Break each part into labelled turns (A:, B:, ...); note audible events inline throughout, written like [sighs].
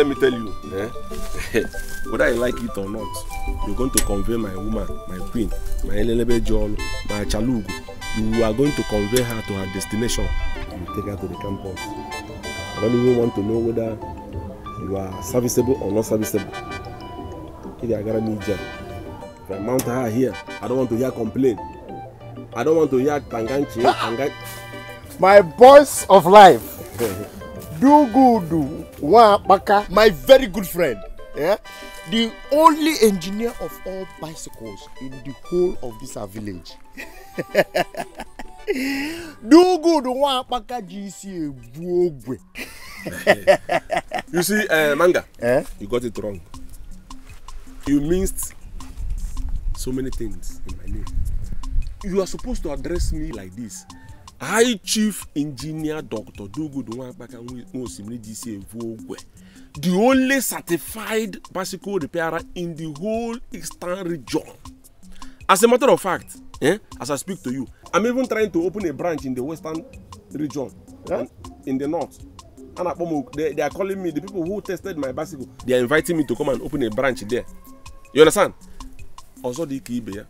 A: let me tell you eh? [laughs] whether I like it or not you're going to convey my woman my queen my elelebe jol my chalugu you are going to convey her to her destination and take her to the campus i don't even want to know whether you are serviceable or not serviceable if I are gara me jam if i mount her here i don't want to hear complain i
B: don't want to hear tanganchi tanganchi ah! my boys of life [laughs] do good wa apaka. my very good friend yeah? the only engineer of all bicycles in the whole of this our village [laughs] do good wa apaka gc ebu ogwe. [laughs]
A: you see uh, manga eh? you got it wrong you missed so many things in my name you are supposed to address me like this high chief engineer dr dogodo nwankpaka nwosimiri dc evuogwe the only certified bicycle repairer in the whole eastern region as a matter of fact eh, as i speak to you i'm even trying to open a branch in the western region yeah? in the north anakpomo they, they are calling me the people who tested my bicycle they are inviting me to come and open a branch there you understand ọzọ dị ka ibe ya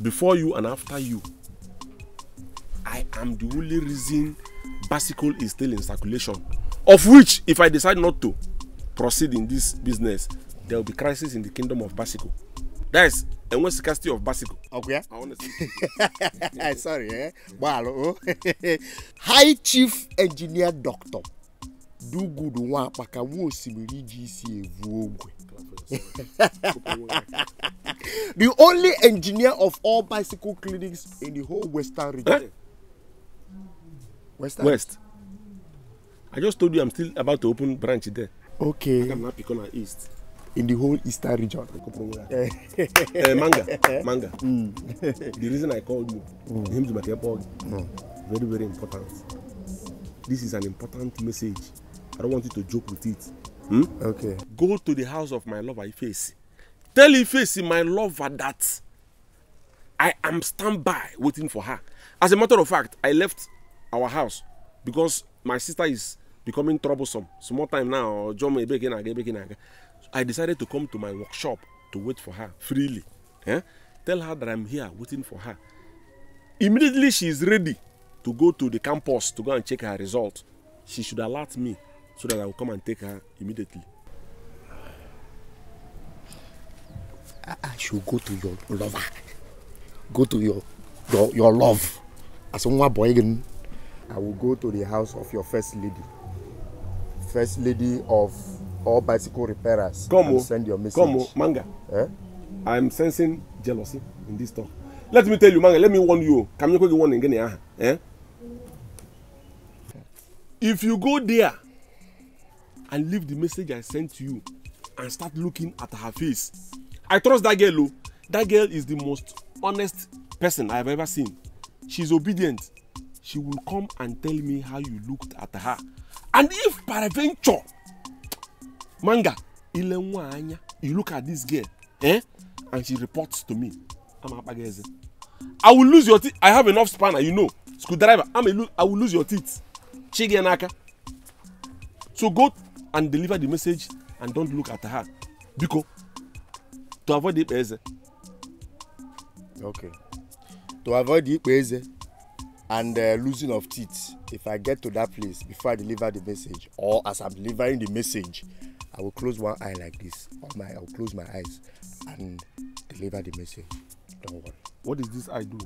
A: before you and after you I am the only reason bicycle is still in circulation. Of which, if I decide not to proceed in this business, there will be crisis in the kingdom of bicycle. That is enwe scarcity of bicycle. Okay. I want to say.
B: Sorry, eh? Wow. Oh. [laughs] High Chief Engineer Doctor Do Dugudu Nwapaka nwa osimiri iji isi evu ogwe. [laughs] the only engineer of all bicycle clinics in the whole western region. West. West.
A: I just told you I'm still about to open branch there. Okay. I'm not picking on east. In the whole eastern region. uh, manga, [laughs] manga. Mm. the reason I called you, mm. him to make mm. very very important. This is an important message. I don't want you to joke with it. Hmm? Okay. Go to the house of my lover Ifeisi. Tell Ifeisi my lover that I am standby waiting for her. As a matter of fact, I left our house because my sister is becoming troublesome small time now ọjọmọ ebeke na again, ebeke na-aga i decided to come to my workshop to wait for her freely eh? tell her that i'm here waiting for her immediately she is ready to go to the campus to go and check her result she should alert me so that i will come and take her immediately.
B: I ah, ah, should go to your lover. Go to your your, your love. As nwa boy again. I will go to the house of your first lady, first lady of all bicycle repairers. Come and send your message.
A: Come on, Manga. Eh? I'm sensing jealousy in this talk. Let me tell you, Manga, let me warn you. Come you warn again, eh? If you go there and leave the message I sent to you and start looking at her face, I trust that girl. Oh. That girl is the most honest person I have ever seen. She's obedient she will come and tell me how you looked at her and if peradventure manga ile nwa anya you look at this girl eh and she reports to me ama akpaga i will lose your teeth i have enough spanner you know screwdriver i'm a i will lose your teeth chige n'aka so go and deliver the message and don't look at her biko
B: to avoid ikpe eze. okay to avoid ikpe eze and uh, losing of teeth if i get to that place before i deliver the message or as i'm delivering the message i will close one eye like this or my i will close my eyes and deliver the message don't worry. what is this eye do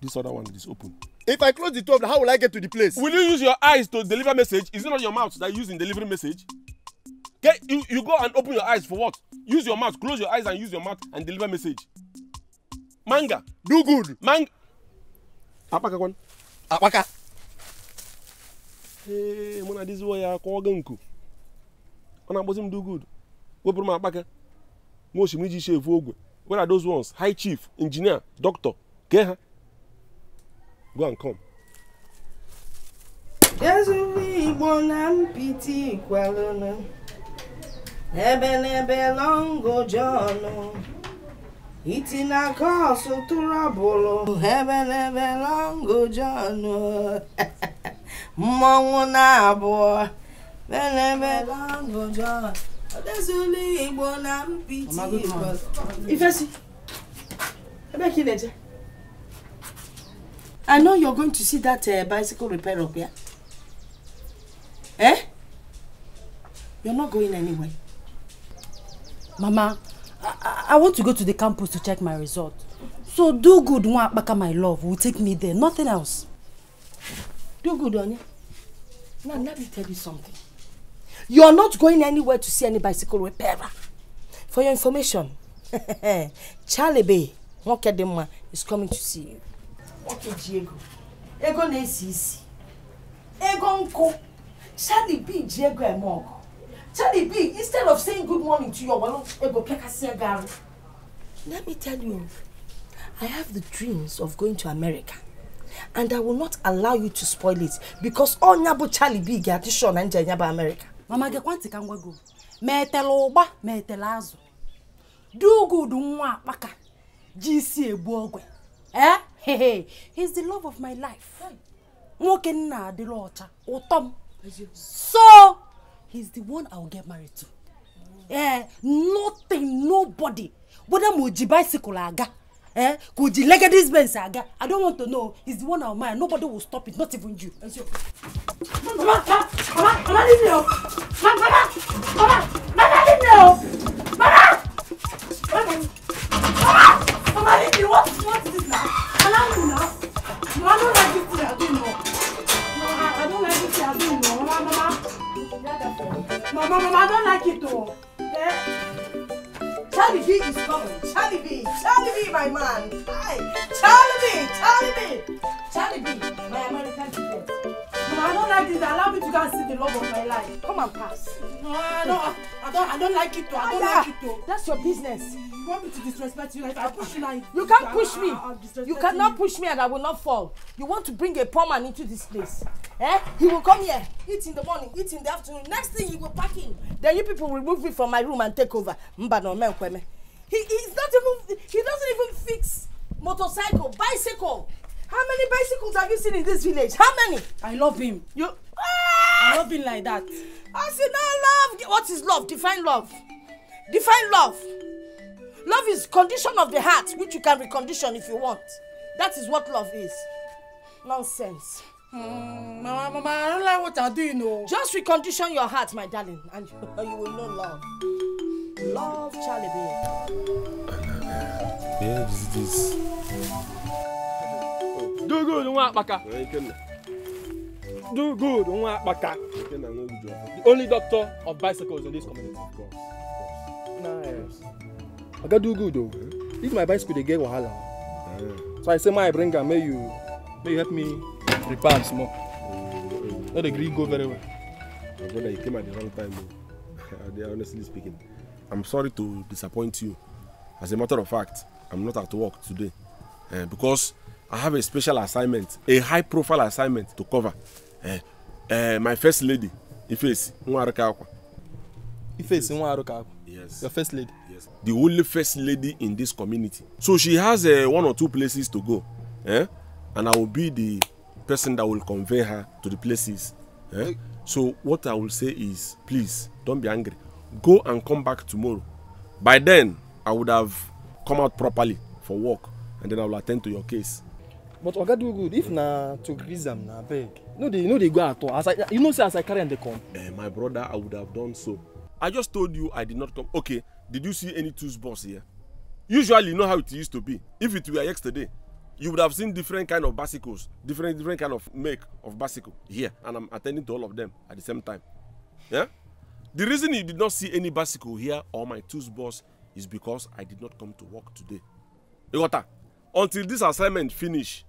B: this other one is open. if i close the top how will i get to the place. will you use your eyes to deliver
A: message is it not your mouth that you use in delivering message get you you go and open your eyes for what use your mouth close your eyes and use your mouth and deliver message manga. do good. manga akpaka kwan akpaka ee mụ na diziwo ya kwa ọ nku ọ na-akpọzi m dugud wepụrụ m akpaka nwa osimiri iji efu ogwe where are those ones high chief engineer doctor kee
C: ha go and come ezuru igbo na mpiti kwalụnụ ebe n'ebe longo jọnụ iti na kos tụrụbụrụ ebelebe lọngụ John mmọnwụ na-abụọ belebe lọngụ John odezula Igbo na mpiti Ifesi ebe ka ị na-eje I know you're going to see that uh, bicycle repair up here. Eh? You're not going anywhere. Mama, I, I want to go to the campus to check my result. So do good, one, Nwakpaka, my love, will take me there, nothing else. Do good, Onya. Now, let me tell you something. You are not going anywhere to see any bicycle repairer. For your information, [laughs] Charlie Bay, Nwokedinma, is coming to see you. Okay, Diego. Ego na-esi Ego nkụ. Charlie B Diego emoko. Charlie B, instead of saying good morning to your wallet, let me tell you, I have the dreams of going to America. And I will not allow you to spoil it because all Nyabo Charlie B get addition and Nyabo America. Mama get kwanti kangwa go. Metele ụgba metele azụ. Do good nwa akpaka. GC egbu ogwe. Eh? Hey, hey. He's the love of my life. Nwoke nna adịla ọcha, ụtọ m. So, he's the one i will get married to eh, nothing nobody whether mo ji bicycle aga eh, kò ji legedis benz aga i don't want to know he's the one i will marry nobody will stop it not even you. mama mama mama leave me o mama mama mama leave me o mama mama mama leave me what what is this now allow me mama, no i don't like this thing i do no mama, i, I don't like this thing i do no mama mama. Mama, Mama, I don't like it though. Yeah. Charlie B is coming. Charlie B, Charlie B, my man. Hi, Charlie B, Charlie B, Charlie B, my American friend. I don't like this. Allow me to go and see the love of my life. Come and pass. No, I don't. I don't. I don't like it. Though. I don't yeah. like it. Though. That's your business. You want me to disrespect you? If I push you like. you can't push me. I, I, you cannot you. push me, and I will not fall. You want to bring a poor man into this place? Eh? He will come here, eat in the morning, eat in the afternoon. Next thing, you will pack him. Then you people will move me from my room and take over. Mbano menkweme. He he's not even. He doesn't even fix motorcycle, bicycle. How many bicycles have you seen in this village? How many? I love him. You. Ah! I love him like that. I say no love. What is love? Define love. Define love. Love is condition of the heart, which you can recondition if you want. That is what love is. Nonsense.
D: Mm,
C: mama, mama, I don't like what I'm doing. you Just recondition your heart, my darling, and [laughs] you, will know love. Love, Charlie, I love
A: you. Where is this? dogodu nwa akpaka dogodu nwa akpaka the only doctor of bicycles in this community
B: nice oga dogodu
A: if my bicycle dey get wahala so i say may i bring am May you may you help me
B: repair am small mm-hmm.
A: no dey gree go very well my brother you came at the wrong time o [laughs] honestly speaking i'm sorry to disappoint you as a matter of fact i'm not at work today uh, because I have a special assignment, a high profile assignment to cover. Uh, uh, my first lady, Ifesi Nwaruka Akwa. Ifesi Nwaruka Akwa. Yes. Your first lady. Yes. The only first lady in this community. So she has uh, one or two places to go. Eh? And I will be the person that will convey her to the places. Eh? So what I will say is, please don't be angry. Go and come back tomorrow. By then, I would have come out properly for work and then I will attend to your case
E: but oga do good if na to grease am na abeg no dey no dey go at all as i you know say
B: as i carry am dey come.
A: Eh, my brother i would have done so i just told you i did not come okay did you see any tools box here usually you know how it used to be if it were yesterday you would have seen different kind of bicycles different different kind of make of bicycle here and i'm attending to all of them at the same time yeah the reason you did not see any bicycle here or my tools box is because i did not come to work today you got until this assignment finish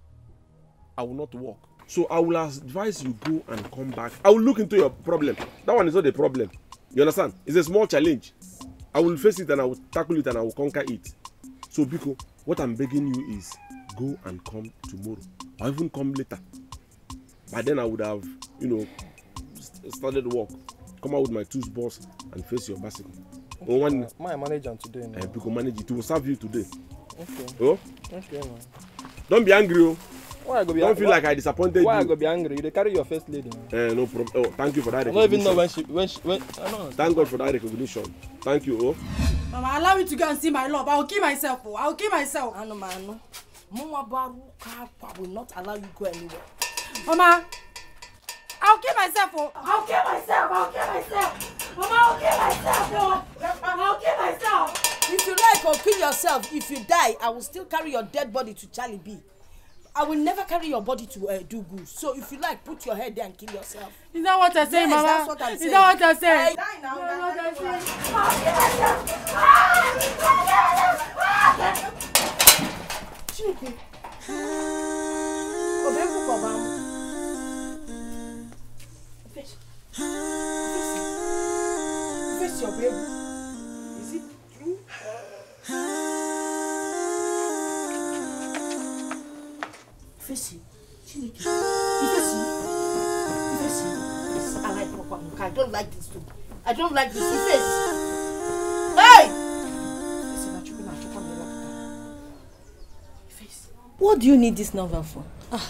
A: I will not work. So I will advise you go and come back. I will look into your problem. That one is not a problem. You understand? It's a small challenge. I will face it and I will tackle it and I will conquer it. So Biko, what I'm begging you is go and come tomorrow or even come later. By then I would have, you know, started work. Come out with my tools boss and face your bicycle. Okay, oh, one, my manager today. Now. Uh, eh, Biko manage it. It will serve you today. Okay. Oh? Okay, man. Don't be angry, oh. Why I go be Don't feel like I disappointed why you. Why I go be angry? You carry your first lady. Eh, no problem. Oh, thank you for that recognition. I don't even know when she when she when. I don't know. Thank God for that recognition. Thank you, oh.
C: Mama, allow me to go and see my love. I will kill myself, oh. I will kill myself. Anu manu, mama baruka, I will not allow you go anywhere. Mama, I will kill myself, oh. I will kill myself. I will kill myself. Mama, I will kill myself, oh. I will kill myself. If you like or kill yourself, if you die, I will still carry your dead body to Charlie B. I will never carry your body to uh, do good. So if you like, put your head there and kill yourself. Is that what I say, yes, Mama? Is that what I say? I die ifesi chineke ifesi ifesi i like papa muka i don't like this too i don't like this ifesi hey what do you need this novel for. ah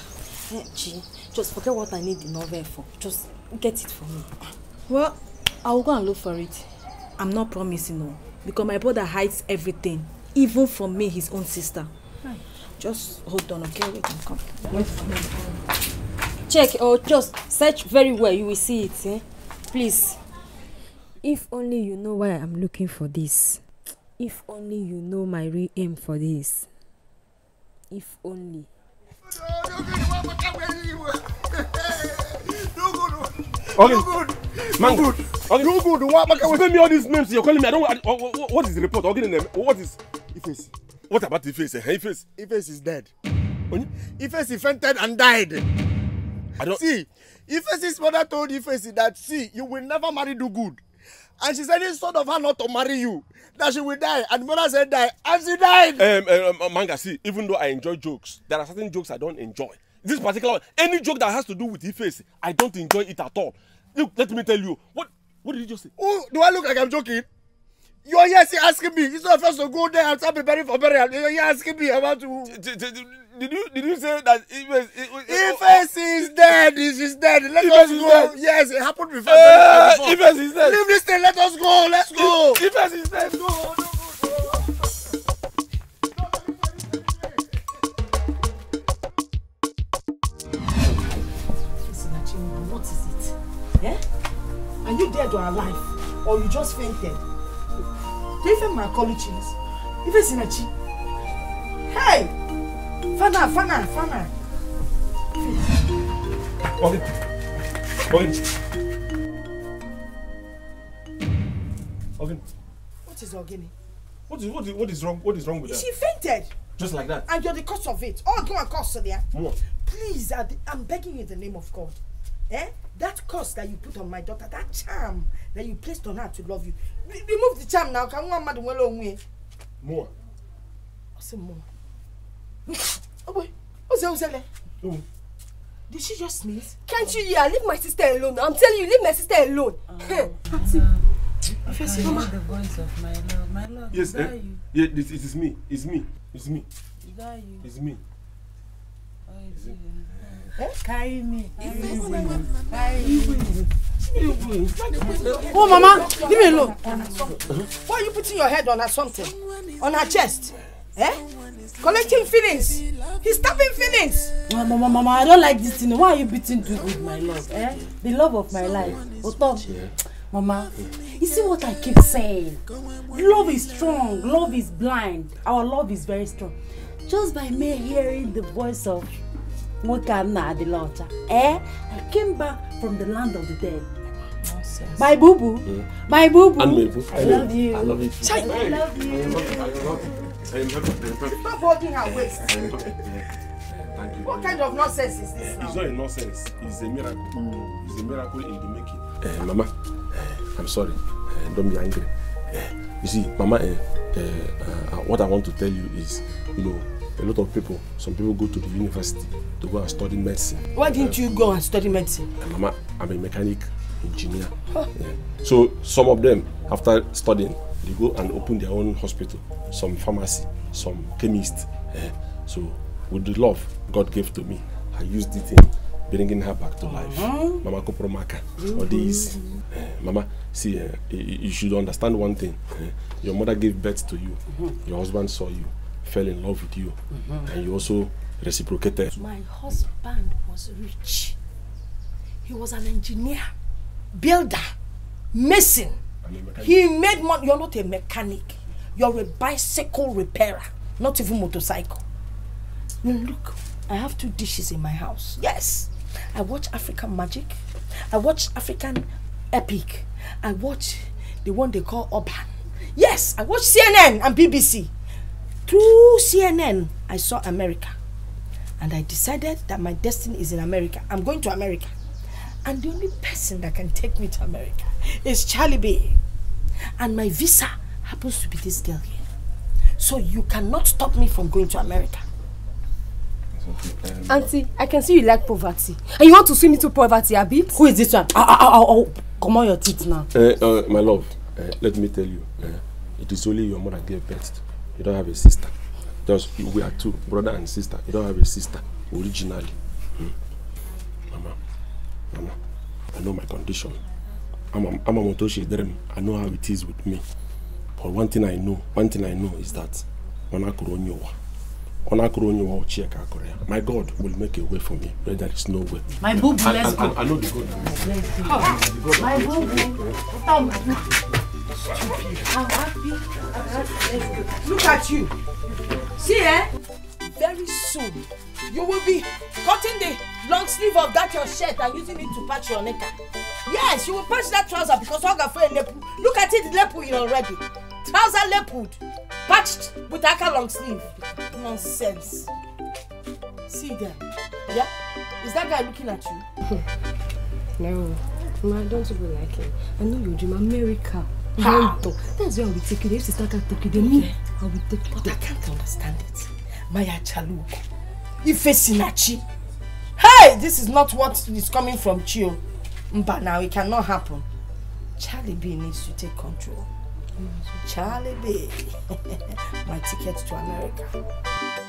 C: gee eh, just forget what i need the novel for just get it for me. well I'll go and look for it i'm not promising o because my brother hides everything even from me his own sister. Right. Just hold on, okay? Wait and come. Check or just search very well. You will see it, eh? Please. If only you know why I'm looking for this. If only you know my real aim for this. If only.
A: Okay. Man, no good. Okay. No good. Why? Why? Why? Why? Why? Why? Why? Why? Why? Why? Why? Why? Why? Why? What is the
B: Why? Why? Why? Why? Why? Why? Why? Why? What about Ife's? Hey, Ife's. Ife's is dead. Oni? Ife's fainted and died. see. Ife's mother told Ife's that see, you will never marry do good. And she said it's son of her not to marry you, that she will die. And mother said die, and she died. Um
A: um, um, um, manga, see, even though I enjoy jokes, there are certain jokes I don't enjoy. This particular one, any joke that has to do with Ife's, I don't enjoy it at all.
B: Look, let me tell you, what what did you just say? Oh, do I look like I'm joking? You are here asking me. It's not first to go there and start preparing for burial. You are here asking me about who? Did you did you say that Ife Ife oh, is dead? Is is dead? Let Ife us go. Dead. Yes, it happened before. Uh, Ife is dead. Leave this thing. Let us go. Let's go. Ife is dead. Go.
C: What is it? Yeah? Are you dead or alive? Or you just fainted? Even my m even chins Hey, fana fana fana
B: Okay.
A: Okay.
C: What is Ogini?
A: What is what is what is wrong? What is wrong with her? She fainted. Just like that.
C: And you're the cause of it. Oh, go and cause there. What? Please, I, I'm begging you in the name of God. Eh? That curse that you put on my daughter, that charm that you placed on her to love you, remove the charm now Can ka nwa mmadụ More. onwe ya more. [laughs] Oh boy. What's ogbe oze ozele Did she just sneeze? Can't you hear? Leave my sister alone. I'm telling you, leave my sister alone. First, oh. [laughs] Mama. the voice of my love. My love, yes, eh? you.
A: Yeah, it, it is me. It's me. It's me. It's me. It's me.
C: Oh, it's, it's me. Oh, Mama, leave me alone. Why are you putting your head on her something? On her chest? Eh? Collecting feelings. He's tapping feelings. Mama, Mama, Mama, I don't like this thing. Why are you beating me with my love? Eh? The love of my life. Otom. Yeah. Mama, you see what I keep saying? Love is strong. Love is blind. Our love is very strong. Just by me hearing the voice of nwoke a nna e, adịla ọcha ee I came back from the land of the dead my boo boo my boo boo I love you I love you I love you stop holding her waist what kind of nonsense is this now?
A: it's not a nonsense it's a miracle mm. it's a miracle in the making. Uh, mama uh, I'm sorry uh, don't be angry uh, you see mama uh, uh, uh, what I want to tell you is you know a lot of people, some people go to the university to go and study medicine.
C: Why didn't uh, you go and study medicine?
A: Mama, I'm a mechanic engineer. Huh. Yeah. So some of them, after studying, they go and open their own hospital, some pharmacy, some chemist. Yeah. So with the love God gave to me, I used it in bringing her back to life. -huh. Mama Kopromaka, mm -hmm. all mm-hmm. these. Eh, mama, see, uh, you, should understand one thing. Eh, your mother gave birth to you. Mm -hmm. Your husband saw you. fell in love with you mm -hmm. and you also reciprocated.
C: My husband was rich. He was an engineer, builder, mason. He made money. You're not a mechanic. You're a bicycle repairer, not even motorcycle. look, I have two dishes in my house. Yes. I watch African magic. I watch African epic. I watch the one they call Urban. Yes, I watch CNN and BBC. through CNN, I saw America. And I decided that my destiny is in America. I'm going to America. And the only person that can take me to America is Charlie B. And my visa happens to be this girl here. So you cannot stop me from going to America. Auntie, I can see you like poverty. And you want to swim into poverty, Abi? Who is this one? Ah, ah, ah, oh, oh, oh, oh. Come on your teeth now.
A: Uh, uh, my love, uh, let me tell you. Uh, it is only your mother gave birth you don't have a sister just we are two brother and sister you don't have a sister originally hmm? mama mama i know my condition i'm a motoshi i know how it is with me but one thing i know one thing i know is that when i could only on Akronyo or Chiaka Korea. My God will make a way for me where there is no way. My boo, bless go. I, I, I know the
C: God. Let's go. My boo, Look at you. See, eh? Very soon, you will be cutting the long sleeve of that your shirt and using it to patch your necker. Yes, you will patch that trouser because Ogafe lepu. Look at it, lepu already. Trouser lepued, patched with aka long sleeve. Nonsense. See them. Yeah? Is that guy looking at you? [laughs] no. Ma, don't you be like him. I know you dream America. That's why I will take you. If can you, me, I will take you. But I can't understand it. Maya Chaluko. Ife Sinachi. Hey, this is not what is coming from Chio. But now it cannot happen. Charlie B needs to take control. Mm. Charlie B. [laughs] My ticket to America.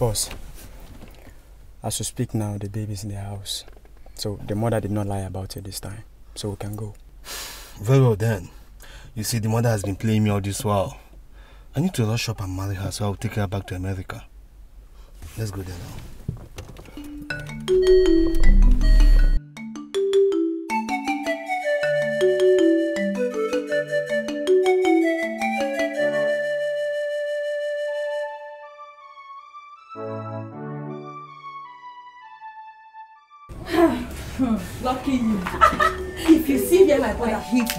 B: course, as we speak now, the baby's in the house. So the mother did not lie about it this time. So we can go.
E: Very well then. You see, the mother has been playing me all this while. I need to rush up and marry her, so I'll take her back to America. Let's go there now.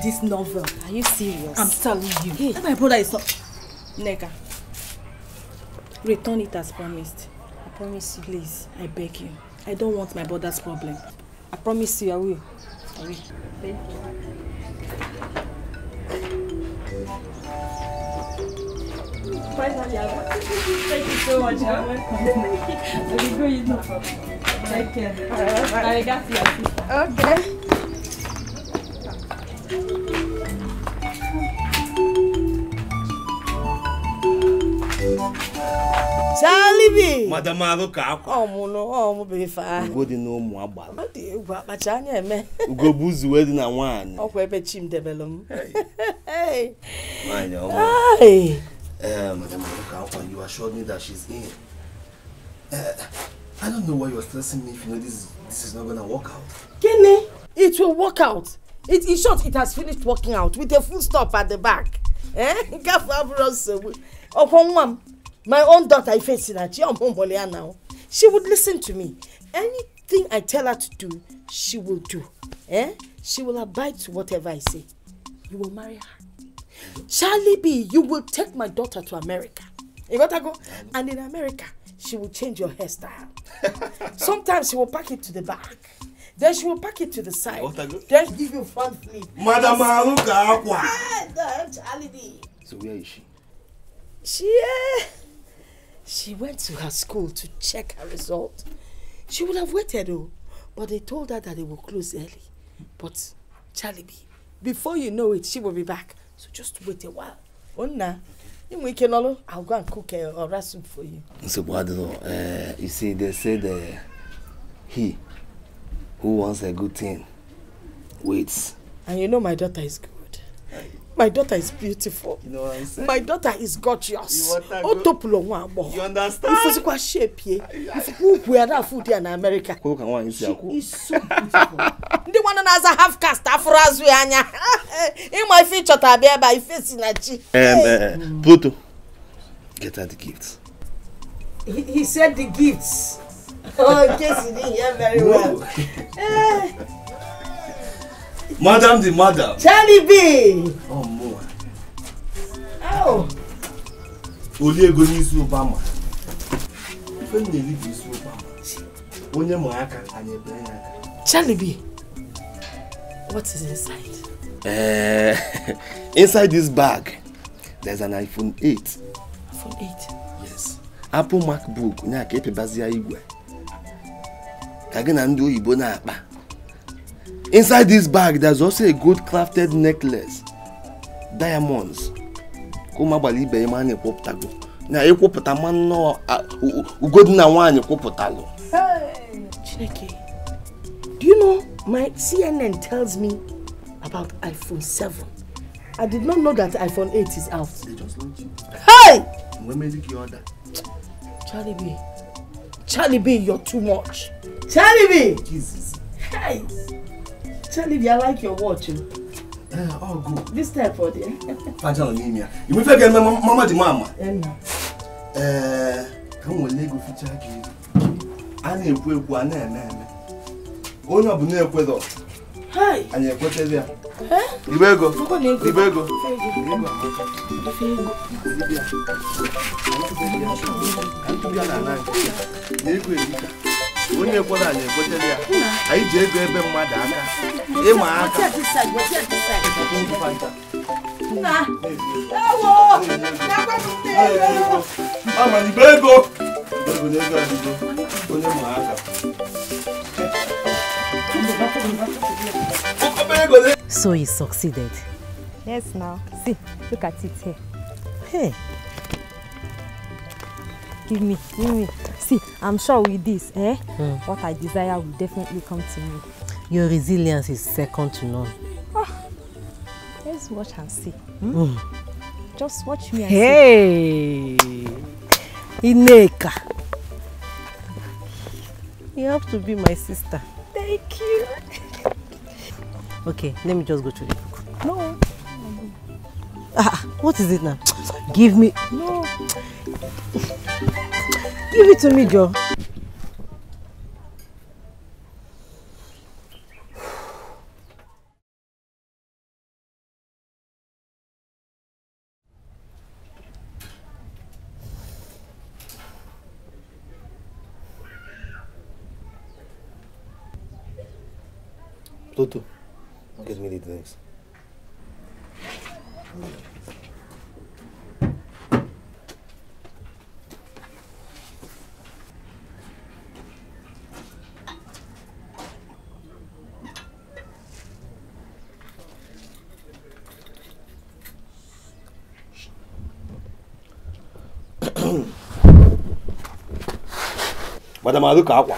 C: this novel. Are you serious? I'm telling you. Hey. my brother is not. Nega. Return it as promised. I promise you. Please, I beg you. I don't want my brother's problem. I promise you, I will. I will. Thank you. Finally, I Thank you so much.
D: You're welcome. I
C: will go, you know. Take care. I got you. Okay. Salibi. Madam
E: Aluka akwa.
C: Ọ mụ nọ, ọ mụ biri faa.
E: Ugo dị n'ụmụ agbala. Ọ
C: dị egwu akpacha anya eme.
E: Ugo bụ uzu wee dị na nwaanyị.
C: Ọkwa ebe chi m debelụ m. Nwaanyị ọma. Uh,
E: Madam Aluka akwa, you assured me that she's in. Uh, I don't know why you you're stressing me if you know this, this is not gonna work out.
C: Kini, it will work out it in short it has finished working out with a full stop at the back nke afọ abụrụ nsogbu ọkwọ nwa m my own daughter ifesi na chi ọmụmụlụ ya now she would listen to me anything i tell her to do she will do eh? she will abide to whatever i say you will marry her charlie b you will take my daughter to america you got to go and in america she will change your hairstyle [laughs] sometimes she will pack it to the back Then she will pack it to the side. Then she give you front flip. Madam Haruka Aqua. Ah, so where is she? She, uh, she went to her school to check her result. She would have waited though, but they told her that they will close early. But Charlie B, before you know it, she will be back. So just wait a while. Oh na, we can all, I'll go and cook a, a soup for you.
E: So, what you Uh, you see, they said uh, he Who wants a good thing?
C: Wait. And you know my daughter is good. My daughter is beautiful. You know what I'm saying? My daughter is gorgeous. You Otopulo nwa agbo. You understand? Ifusikwa shape ye. Ifusikwa ukwu ya na food ya na America. Kwa ka nwaanyị si akwụ. She is so beautiful. Ndị nwanne na a half caste afụrụ azụ In my future, ife ịchọta abịa ebe face ife si na chi.
E: Eh, Pluto, get her the gifts.
C: He, he said the gifts. oh, yes, you didn't hear very well.
E: [laughs] Madam the madam.
C: Charlie B. Oh, more. Oh.
E: Oliego n'isi Obama. Ife m you eri bụ isi Obama. Onye ma
C: aka, anyị ebere ya Charlie B. What is inside?
E: Uh, [laughs] inside this bag, there's an iPhone 8.
C: iPhone 8? Yes.
E: Apple MacBook, onye aka epebazi ya igwe. ka gị na ndị oyibo na-akpa inside this bag there's also a good crafted necklace diamonds ka ụmụ agbara ibe ya ma na-ekwupụtago na ịkwụpụta ma nnọọ ugodi na nwaanyị kwụpụtalụ
C: chineke do you know my cnn tells me about iphone 7 i did not know that iphone 8 is out hey! Charlie Charlie B, you're too much. Charlie B! Jesus. Hey! Charlie B, I like your watch. Uh, oh. all eh, oh, good. This time for there.
B: Fajan Olimia.
C: You will forget my mama the mama. Emma.
E: Eh, come on, Lego for charge I need to go on and on. Only up in there with anyị ekwetezi ya igbe ego igbe ego onye ekwere anyị ekwetezi ya anyị ji ego ebe mmadụ aka ịma aka ọmana igbe ego igbe na onye ma aka
C: So he succeeded. Yes, now. See, look at it here. Hey. Give me, give me. See, I'm sure with this, eh? Mm. What I desire will definitely come to me. Your resilience is second to none. Oh, let's watch and see. Hmm? Mm. Just watch me and hey. see. Hey! Ineka! You have to be my sister. Thank you. Okay, let me just go to the book. No. Ah, what is it now? Give me. No. Give it to me, Joe.
E: Pluto. Thanks. Madam Aduka,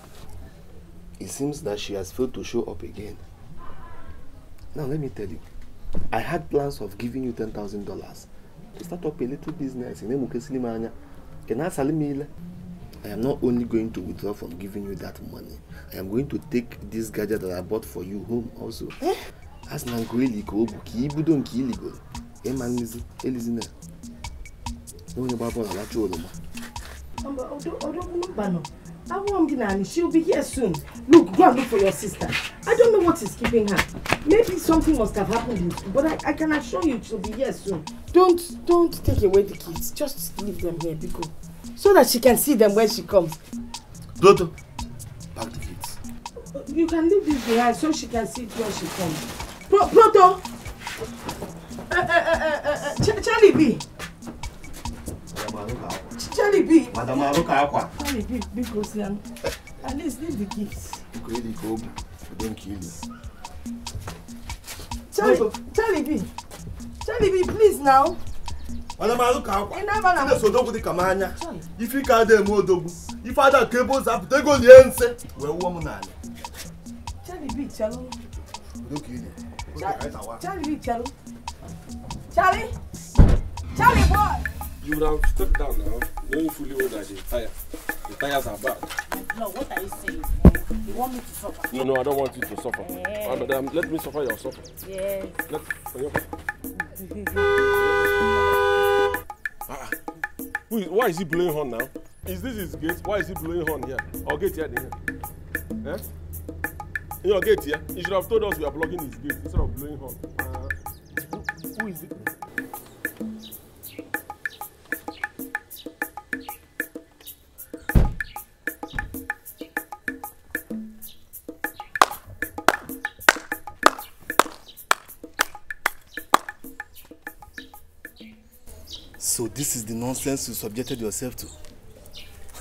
E: it seems that she has failed to show up again. Now, let me tell you, I had plans of giving you $10,000 to start up a little business in Emukesilima Can I salimile? I am not only going to withdraw from giving you that money, I am going to take this gadget that I bought for you home also. Eh? As Nangueli Kobu, Kibudo and Kiligo, Eman Elizina. No, no, no, no, no, no,
C: no, no, no, no, no, Awamdi Nani, she'll be here soon. Look, go and look for your sister. I don't know what is keeping her. Maybe something must have happened, but I, I can assure you she'll be here soon. Don't, don't take away the kids. Just leave them here, Biko. So that she can see them when she comes. Dodo, pack the kids. You can leave this behind so she can see it when she comes. Pro Proto! Uh, uh, uh, uh, uh, Ch Charlie B! Yeah, surely B. Madam Aruka Akwa. Surely be because um, at least leave the gifts. Really go, don't
B: kill you.
C: Charlie, Charlie B. Charlie B, please now. Madam Aruka Akwa. Enaba na. Sile sodogwu dịka m anya. Ife ka ada eme
E: odogwu. Ife ada ka ebe ụzọ apụta ego lie nse wee wụọ m n'ala.
C: Charlie B, chalụ. Don't kill you. Charlie B, chalụ. Charlie. Charlie boy.
A: You would have stepped down now, knowing fully well that the tired. The tires are bad.
C: No, what are you saying? You want me to suffer?
A: No, no, I don't want you to suffer. Yeah. Uh, madam, let me suffer your suffer. Yes. Let me. [laughs] ah, who is, why is he blowing horn now? Is this his gate? Why is he blowing horn here? Or gate here? here? Eh? In your gate here? He should have told us we are blocking his gate instead of blowing horn. Uh,
C: who, who is it?
E: So this is the nonsense you subjected yourself to.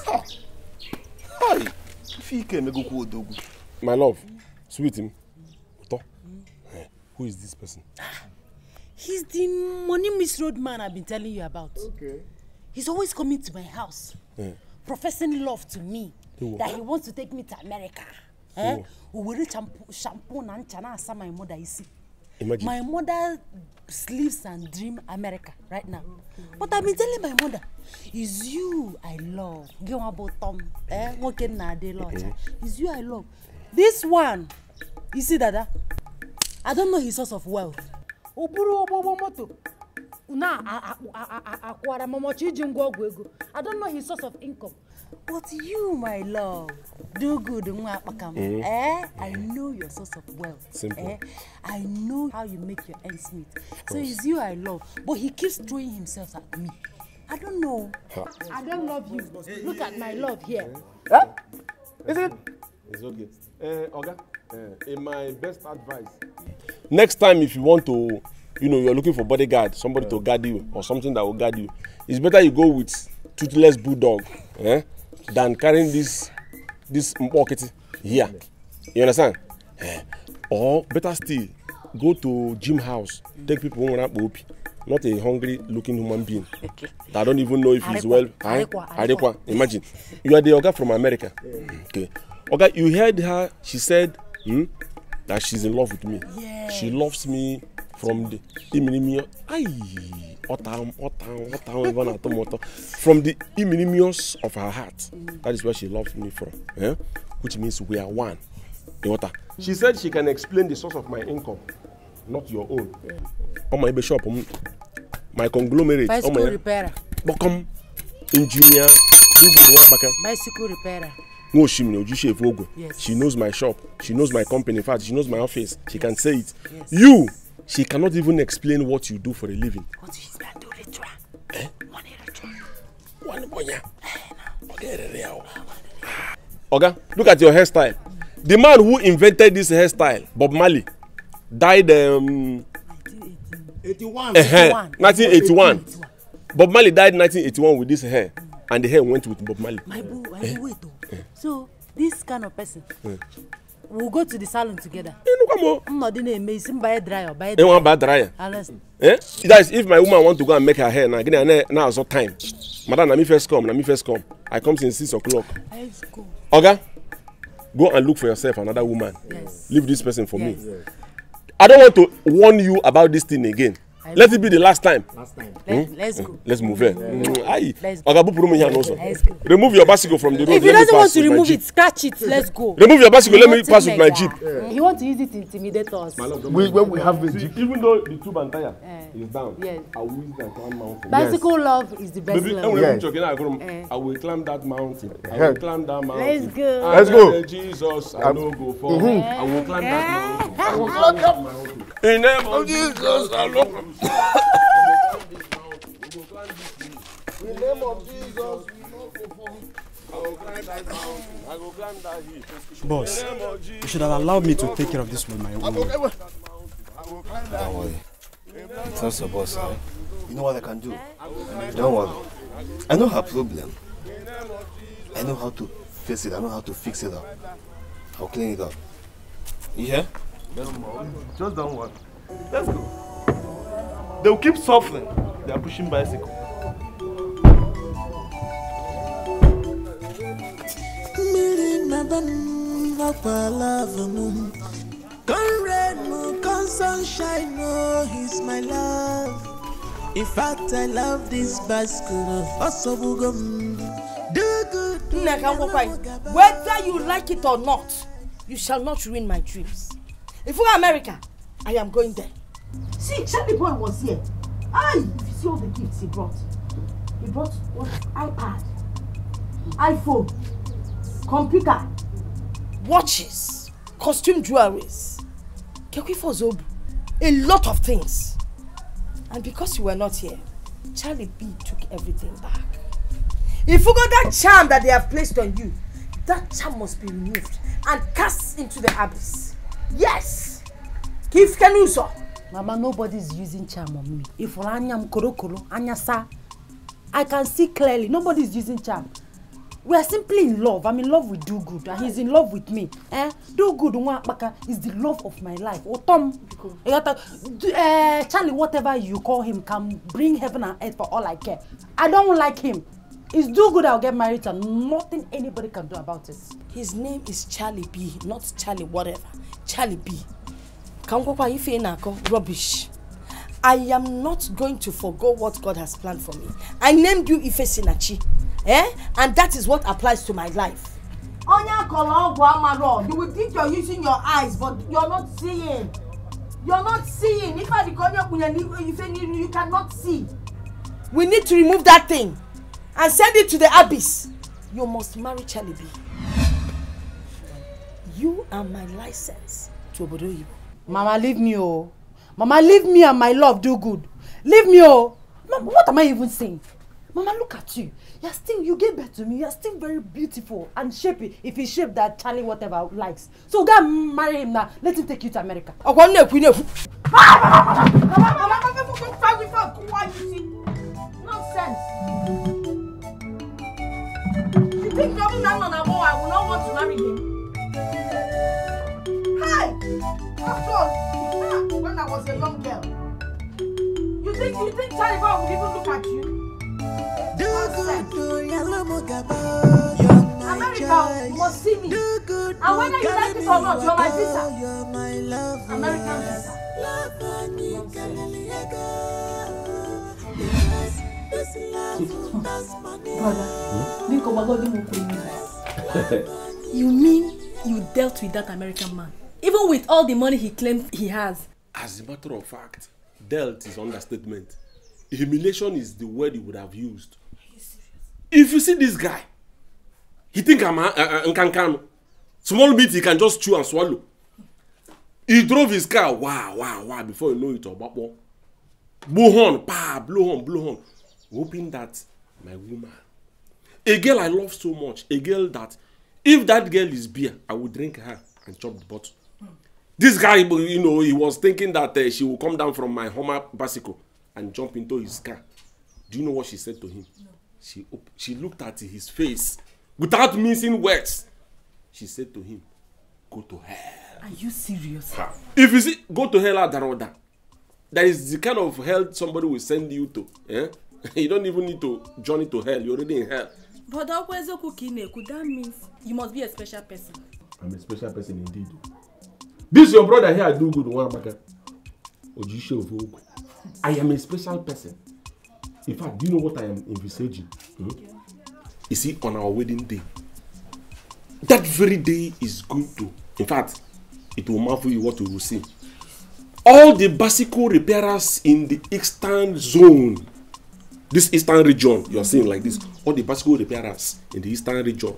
E: Ha! Hi! Fike megoku odogu.
A: My love, sweet him. Uto. Eh, who is this person?
C: Ah, he's the money misroad man I've been telling you about. Okay. He's always coming to my house, yeah. professing love to me, that he wants to take me to America. Eh? Owere shampoo na ncha na asa my mother isi. Imagine. My mother sleeps and dream America right now. But I've been telling my mother, it's you I love. Gé wọn bó tọ́m ẹ́ wọ́n ké nà dé lọ́ọ̀tà. It's you I love. This one, you see dada, I don't know his source of wealth. O buru ụgbọgbọ moto na akwara mọmọchi iji ngwa ọgwụ ego. I don't know his source of income. But you, my love, do good, Mwapakam. Mm. Eh? eh? I know your source of wealth. Eh? I know how you make your ends meet. So it's you I love. But he keeps throwing himself at me. I don't know. Huh. I don't love you. Look at my love here. Eh? Huh? Is it?
A: It's okay. Uh, Oga, uh, in my best advice. Next time, if you want to, you know, you're looking for bodyguard, somebody yeah. to guard you, or something that will guard you, it's better you go with toothless bulldog. Eh? than carrying this this mkpokiti here you understand eh. or better still go to gym house take people nwere akpa opi not a hungry looking human being that don't even know if he's well arikwa imagine you are the oga from america okay oga you heard her she said hmm, that she's in love with me she loves me from the iminimio ayi. Otam, Otam, Otam, even at Tomoto. From the imminence of her heart. That is where she loves me from. Eh? Which means we are one. The water. She said she can explain the source of my income, not your own. Yeah. On my bishop, my conglomerate. Bicycle repairer. Bokom, engineer,
C: bicycle repairer.
A: no she me oju shave ogo she knows my shop she knows my company in fact she knows my office she yes. can say it yes. you she cannot even explain what you do for a living what is One Oga, look at your hairstyle. The man who invented this hairstyle, Bob Marley, died um,
B: 81. Uh -huh.
A: 1981. Bob Marley died 1981 with this hair, and the hair went with Bob Marley. My
C: boo, I eh, boo, wait. Oh. Eh. So this kind of person. Yeah we go to the salon together. inú kọ́ mọ́. nnọdị na-eme isi mba ya dry ọ ba ya dry. ẹ wọn ba dry ya.
A: eh guys if my woman want to go and make her hair now gịnị na na azọ time madam na me first come na me first come i come since six o'clock. oga go and look for yourself another woman yes. leave this person for yes. me. Yes. i don want to warn you about this thing again let it be the last time. Last time. Let, hmm? Let's go. Hmm? Let's move here. Hmm, Ayi. Oga Bupuru here also. Remove your bicycle from the road. If he doesn't want to remove it,
C: scratch it. Let's go. Remove your bicycle. Let me pass with my jeep. He want to use it to intimidate us. We
A: when we have the jeep. Even though the tube and tire eh. is down, I will use that one mountain. Bicycle love is the best love. Maybe when we jogging, I eh. I will climb that mountain. I will climb that mountain. Let's go. Let's go. Jesus, I no go mm-hmm. fall. I will climb that
B: eh. mountain. I will climb that mountain.
A: [laughs] In name of Jesus, I no Boss, you should have allowed me to take
E: care of this with my own. Don't worry. It's not so boss, eh? You know what I can do? Don't worry. I know her problem. I know how to face it. I know how to fix it up. I'll clean it up. You hear? Just don't worry. Let's go. They will keep suffering. They are pushing bicycle. Come
C: moon, come sunshine, oh, he's my love. In fact, I love this bicycle. Also, oh, Whether you like it or not, you shall not ruin my dreams. If we're America, I am going there. See, Charlie Boy was here. I, ah, if you see all the gifts he brought, he brought what? iPad, iPhone, computer, watches, costume jewelries, Kekwifo Zobu, a lot of things. And because you were not here, Charlie B took everything back. If you got that charm that they have placed on you, that charm must be removed and cast into the abyss. Yes! Kif Kenuso! Mama, nobody is using charm on me. If I'm korokoro, sa, I can see clearly. nobody is using charm. We are simply in love. I'm in love with Do Good, and he's in love with me. Eh? Do Good Nwakpaka is the love of my life. Or Tom, uh, Charlie, whatever you call him, can bring heaven and earth for all I care. I don't like him. It's Do Good I'll get married and nothing anybody can do about it. His name is Charlie B, not Charlie whatever. Charlie B ka ngwakwa ife na-akọ rubbish I am not going to forgo what God has planned for me. I named you Ife Sinachi, eh? And that is what applies to my life. Onya kọrọ ọgwụ amarọ, you will think you're using your eyes but you're not seeing. You're not seeing. If I dikọ onye kpunye n'ife you cannot see. We need to remove that thing and send it to the abyss. You must marry Chalibi. You are my license to obodo oyibo mama leave me o mama leave me and my love do good leave me o mama what am i even saying mama look at you you are still you get birth to me you are still very beautiful and shapely if he shape that charlie whatever likes so go and marry him now let him take you to america. ọkọ nne ekwu nne ekwu. mama mama mama fún fún fún fún kú wá yìí nonsense. I was a young girl. You think you think Charlie Brown would even look at you? America must see me. And whether you like it or not, you're my sister. You're my lover. American sister. Brother, think of what you will You mean you dealt with that American man? Even with all the money he claims he has,
A: As a matter of fact, dealt is understatement. Humiliation is the word he would have used. If you see this guy, he think I'm uh, Nkankano. Small bit he can just chew and swallow. He drove his car, wow, wow, wow, before you know it, Obakbo. Blow horn, pa, blow horn, blow horn. Hoping that my woman, a girl I love so much, a girl that if that girl is beer, I would drink her and chop the bottle this guy you know he was thinking that uh, she would come down from my homer bicycle and jump into his car do you know what she said to him no. she she looked at his face without missing words she said to him go to hell
C: are you serious
A: ha. if you see go to hell that order that is the kind of hell somebody will send you to eh? [laughs] you don't even need to journey to hell you're already in hell
C: but that means you must be a special person
A: i'm a special person indeed This your brother here, I do good one back. of Vogue. I am a special person. In fact, do you know what I am envisaging? Hmm? You see, on our wedding day, that very day is going to, in fact, it will marvel you what you will see. All the bicycle repairers in the eastern zone, this eastern region, you are seeing like this, all the bicycle repairers in the eastern region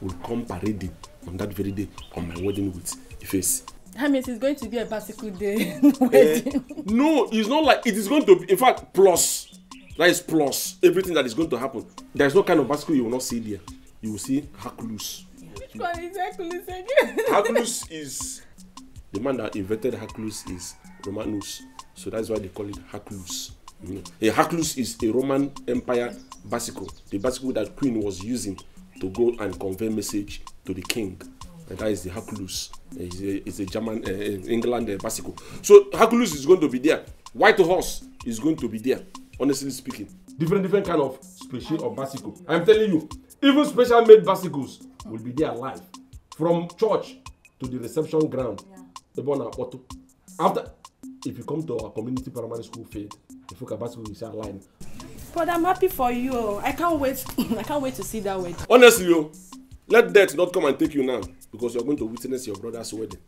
A: will come parading on that very day on my wedding with Ifeanyi.
C: I mean, it's going to be a bicycle day Uh,
A: [laughs] no, it's not like it is going to be. In fact, plus that is plus everything that is going to happen. There is no kind of bicycle you will not see there. You will see Hercules.
D: Which one is Hercules again? [laughs] Hercules is
A: the man that invented Hercules is Romanus, so that's why they call it Hercules. You a eh, Hercules is a Roman Empire bicycle, the bicycle that Queen was using to go and convey message to the king. Uh, that is the Hercules. it's, eh, a, it's a German, uh, England uh, bicycle. So Hercules is going to be there. White horse is going to be there. Honestly speaking, different different kind of special or bicycle. I'm telling you, even special made bicycles will be there live from church to the reception ground. Yeah. Ebona Auto. After, if you come to our community primary school field, the Fuka bicycle is online.
C: But I'm happy for you. I can't wait. [laughs] I can't wait to see that wedding.
A: Honestly, yo, let death not come and take you now because you're going to witness your brother's wedding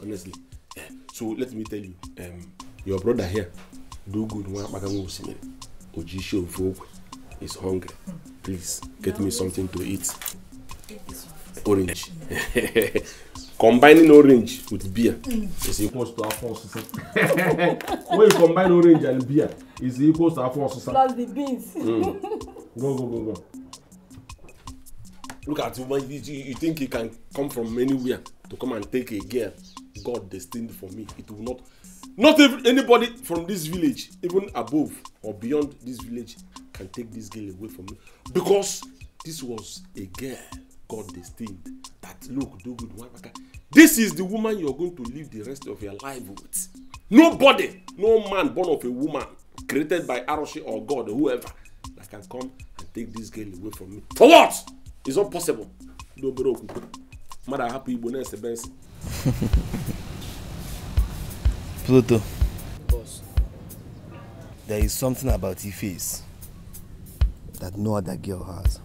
A: honestly eh, so let me tell you um, your brother here do good nwa akpaganwa osimiri oji show ogwe is hungry please get me something to eat orange [laughs] combining orange with beer is equals to afọ ọsụsụ [laughs] when you combine orange and beer is equals to afọ ọsụsụ plus the beans mm. go go go go look at you, you, you think you can come from anywhere to come and take a girl God destined for me. It will not, not even anybody from this village, even above or beyond this village, can take this girl away from me because this was a girl God destined. That look, do good, one. This is the woman you are going to live the rest of your life with. Nobody, no man born of a woman created by Aroshi or God or whoever that can come and take this girl away from me. For what? it's not possible ndị obere okwukwe mmadụ ahapụ igbo na-esebe nsị
E: [laughs] pluto Boss. there is something about your face that no other girl has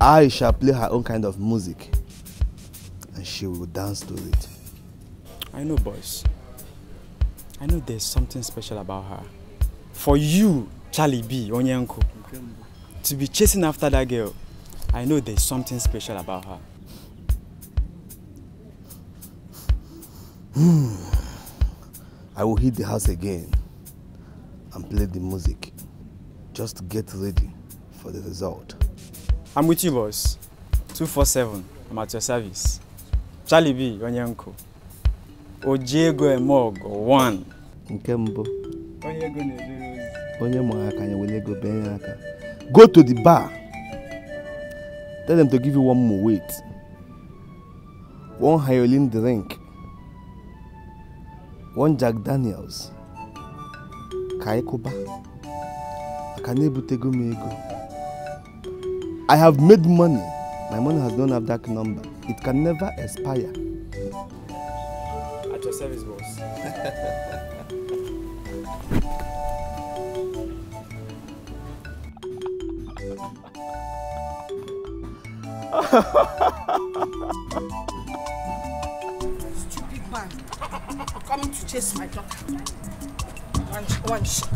E: I shall play her own kind of music and she will dance to it.
B: I know, boys. I know there's something special about her. For you, Charlie B, Onyanko. Okay. to be chasing after that girl, I know there's something special about her.
E: Hmm. I will hit the house again and play the music. Just get ready for the result.
B: I'm with you, boss. 247, I'm at your service. Charlie B, Onyanko. Ojego Emogo, one. Nke mbụ.
E: Onye go na-ejere ozi. Onye mara aka ya were ego bee aka. Go to the bar. Tell them to give you one more weight. One Hyolin drink. One Jack Daniels. Ka ịkụba. Aka I have made money. My money has don't have that number. It can never expire.
B: At your service, boss. [laughs] Stupid
C: man. Coming to chase my daughter. One, one shot.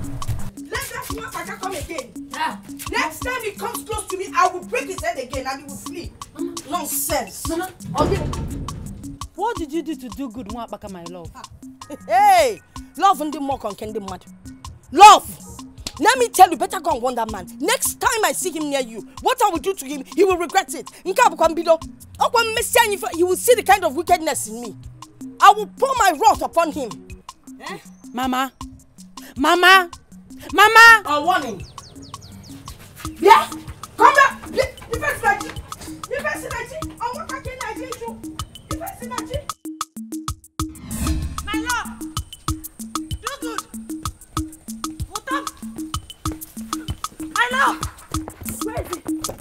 C: Let that small saka come again. Ah. Next time he comes close to me, I will break his head again and he will flee. Mama. Mm-hmm. Nonsense. Mama. Mm-hmm. Okay. What did you do to do good, Mwapaka, my love? Ah. [laughs] Hey! Love and the ka on ndị mmadụ. Love! Let me tell you, better go and warn that man. Next time I see him near you, what I will do to him, he will regret it. Nkabukambido, Okwan Messiah, you will see the kind of wickedness in me. I will pour my wrath upon him. Eh? Mama, Mama, Mama! A warning. Yeah, come back. The first night, the first night, I want to get Nigeria. The first night.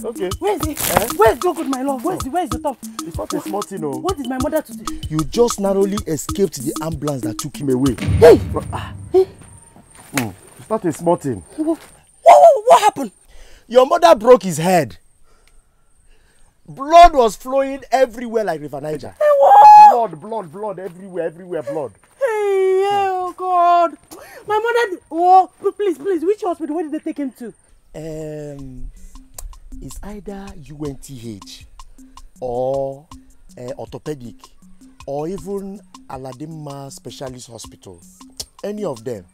C: Okay. Where is he? Eh? Where is Joe good, my love? Where is, he? where is the top? It's not
B: a small thing, oh.
C: What did my mother to do?
B: You just narrowly escaped the ambulance that took him away. Hey! Ah. hey. Mm. It's not a small thing. What, what, what happened? Your mother broke his head. Blood was flowing everywhere like River Niger. Hey, what? Blood, blood, blood,
C: everywhere, everywhere, blood. Hey, yeah, oh God. My mother, oh, please, please, which hospital, where did they take him to? Um, is either
B: UNTH or uh, orthopedic or even Aladima Specialist Hospital. Any of them.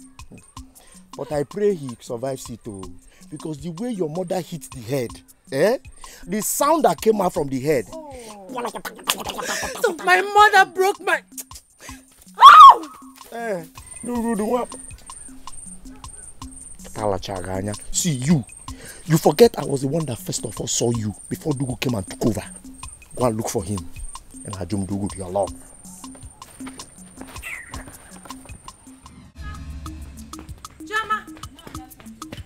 B: But I pray he survives it too. Oh. Because the way your mother hit the head, eh? The sound that came out from the head.
C: so my mother broke my. Oh! Eh,
B: do do do what? Talachaga anya. See you. You forget I was the one that first of all saw you before Dugu came and took over. Go and look for him. And Hajum Dugu, your love.
C: Jama!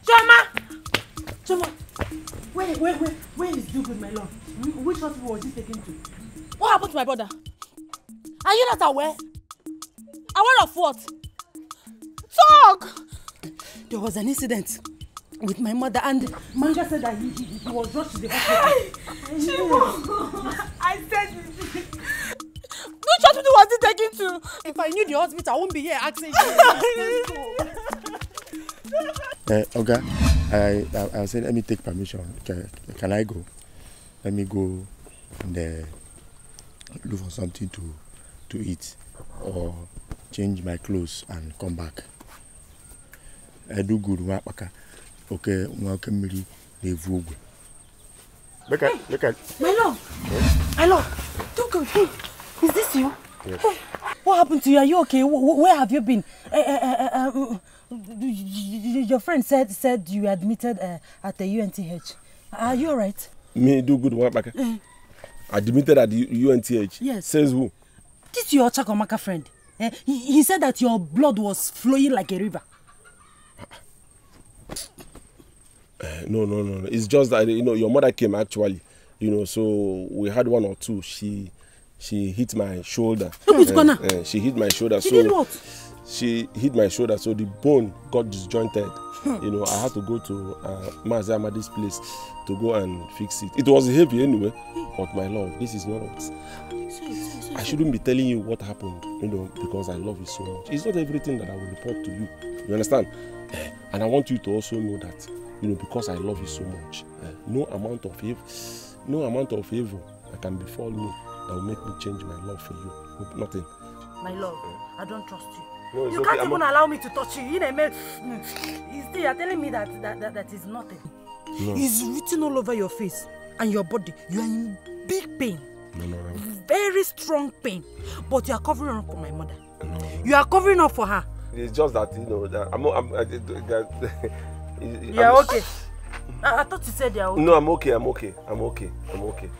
C: Jama! Jama! Where, where, where, where is Dugu, my love? Which hospital was he taken to? What happened to my brother? Are you not aware? Aware of what? Talk! There was an incident. with my mother and Manja said that he, he, he was rushed to the hospital. Hey, [laughs] I said Which hospital was he taken to? If I knew the hospital, I wouldn't be here asking you.
B: uh, [laughs] I, I, I said, let me take permission. Can, can I go? Let me go and uh, look for something to, to eat or change my clothes and come back. I eh, do good work. oke nwoke mmiri na-evu ogwe
C: my love my love don't go hey is this you yes. what happened to you are you okay where have you been uh, uh, uh, um, your friend said said you admitted uh, at the UNTH are you all right
A: me do good work back uh, eh. admitted at the UNTH yes says who
C: this your Chakomaka friend uh, he, he said that your blood was flowing like a river
A: Eh, no, no, no, no. It's just that you know your mother came actually, you know. So we had one or two. She she hit my shoulder. and, eh, and eh, she hit my shoulder. She so did what? She hit my shoulder, so the bone got disjointed. Hmm. You know, I had to go to uh, Mazi Amadi's place to go and fix it. It was heavy anyway, but my love, this is not. I shouldn't be telling you what happened, you know, because I love you so much. It's not everything that I will report to you. You understand? And I want you to also know that you know, because I love you so much. Uh, no amount of evil, no amount of evil that can befall me that will make me change my love for you. Hope nothing.
C: My love, uh, I don't trust you. No, you okay. can't I'm even not... allow me to touch you. You know, man. Still, you're telling me that that, that, that is nothing. No. It's written all over your face and your body. You are in big pain. No, no, no. Very strong pain. But you are covering up for my mother. No. You are covering up for her.
A: It's just that, you know, that I'm not, I'm, I, that, Is, yeah, okay.
C: I, I thought you said yeah. Okay.
A: No, I'm okay. I'm okay. I'm okay.
C: I'm okay.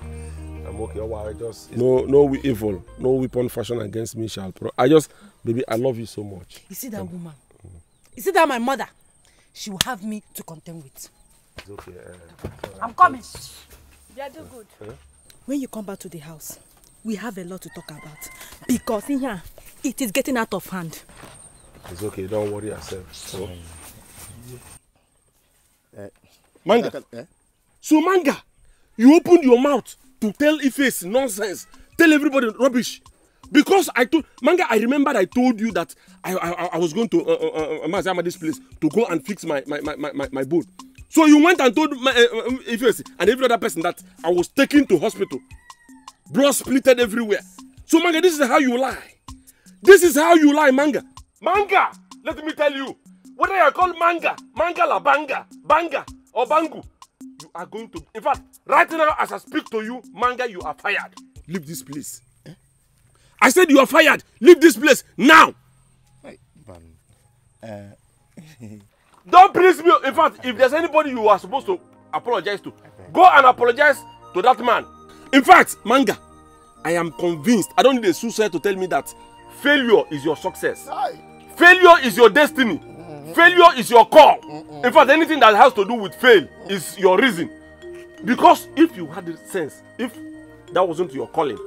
C: I'm okay. Oh, wow, I just
A: no no evil, no weapon fashion against me shall pro. I just, baby, I love you so much.
C: You see that um, woman? You see that my mother? She will have me to contend with. It's okay. Uh, I'm coming. They are doing good. Uh, When you come back to the house, we have a lot to talk about because in here it is getting out of hand.
A: It's okay. Don't worry yourself. So. Mm. Eh. manga. Eh?
C: So manga, you opened
A: your mouth to tell Iface nonsense, tell everybody rubbish. Because I told manga, I remembered I told you that I I, I was going to uh, uh, uh, uh Mazama's place to go and fix my my my my, my bone. So you went and told my, uh, um, Iface and every other person that I was taken to hospital. Blood splitted everywhere. So manga, this is how you lie. This is how you lie, manga. Manga, let me tell you what they are called manga, manga la banga, banga or bangu, you are going to. In fact, right now as I speak to you, manga, you are fired. Leave this place. Eh? I said you are fired. Leave this place now. Wait,
B: uh... [laughs]
A: Don't please me. In fact, if there's anybody you are supposed to apologize to, go and apologize to that man. In fact, manga, I am convinced. I don't need a suicide to tell me that failure is your success. Aye. Failure is your destiny failure is your call in fact anything that has to do with fail is your reason because if you had sense if that wasn't your calling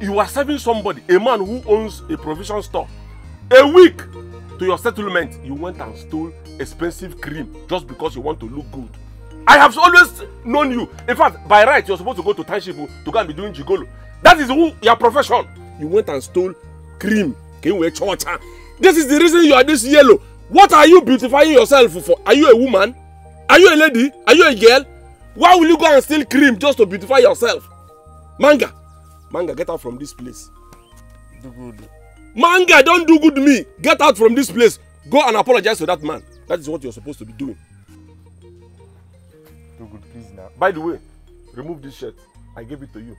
A: you were serving somebody a man who owns a provision store a week to your settlement you went and stole expensive cream just because you want to look good i have always known you in fact by right you are supposed to go to township to go and be doing jigolo that is who your profession you went and stole cream kenwe chocha ah. this is the reason you are this yellow What are you beautifying yourself for? Are you a woman? Are you a lady? Are you a girl? Why will you go and steal cream just to beautify yourself? Manga, Manga, get out from this place. Do good. Manga, don't do good me. Get out from this place. Go and apologize to that man. That is what you're supposed to be doing. Do good, please now. By the way, remove this shirt. I gave it to you.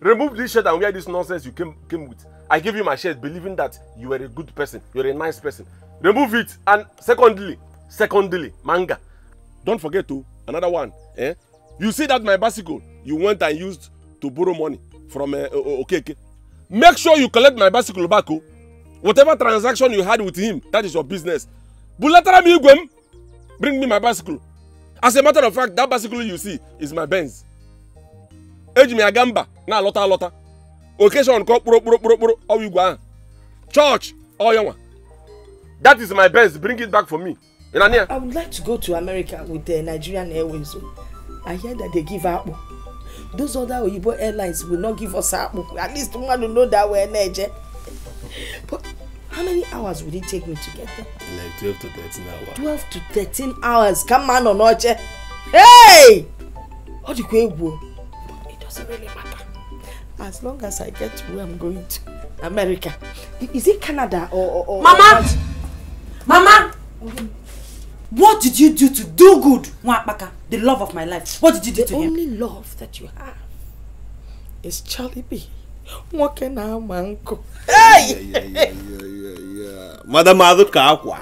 A: Remove this shirt and wear this nonsense you came, came with. I gave you my shirt believing that you were a good person. You're a nice person remove it and secondly secondly manga don't forget to another one eh? you see that my bicycle you went and used to borrow money from uh, eh, okay. okeke make sure you collect my bicycle back o oh. whatever transaction you had with him that is your business bulatara mi igwe bring me my bicycle as a matter of fact that bicycle you see is my benz eji m ya gaa mba na-alọta alọta occasion kọ kpụrụ kpụrụ kpụrụ kpụrụ ọwa igwe ahụ chọọchị ọyanwa That is my best. Bring it back for me. Irania. I
C: would like to go to America with the Nigerian Airways. Oh. I hear that they give apple. Those other Oyibo airlines will not give us apple. At least one will know that we're Niger. But how many hours would it take me to get there?
E: Like 12 to thirteen hours.
C: Twelve to thirteen hours. Come on, Onoche. Hey! What do you go? It doesn't really matter. As long as I get to where I'm going to, America. Is it Canada or. or, or Mama! Or Mama! What did you do to do good, Mwakpaka, the love of my life? What did you do the to him? The only love that you have is Charlie B. nwoke na-ama nkụ
E: madamadụ ka akwa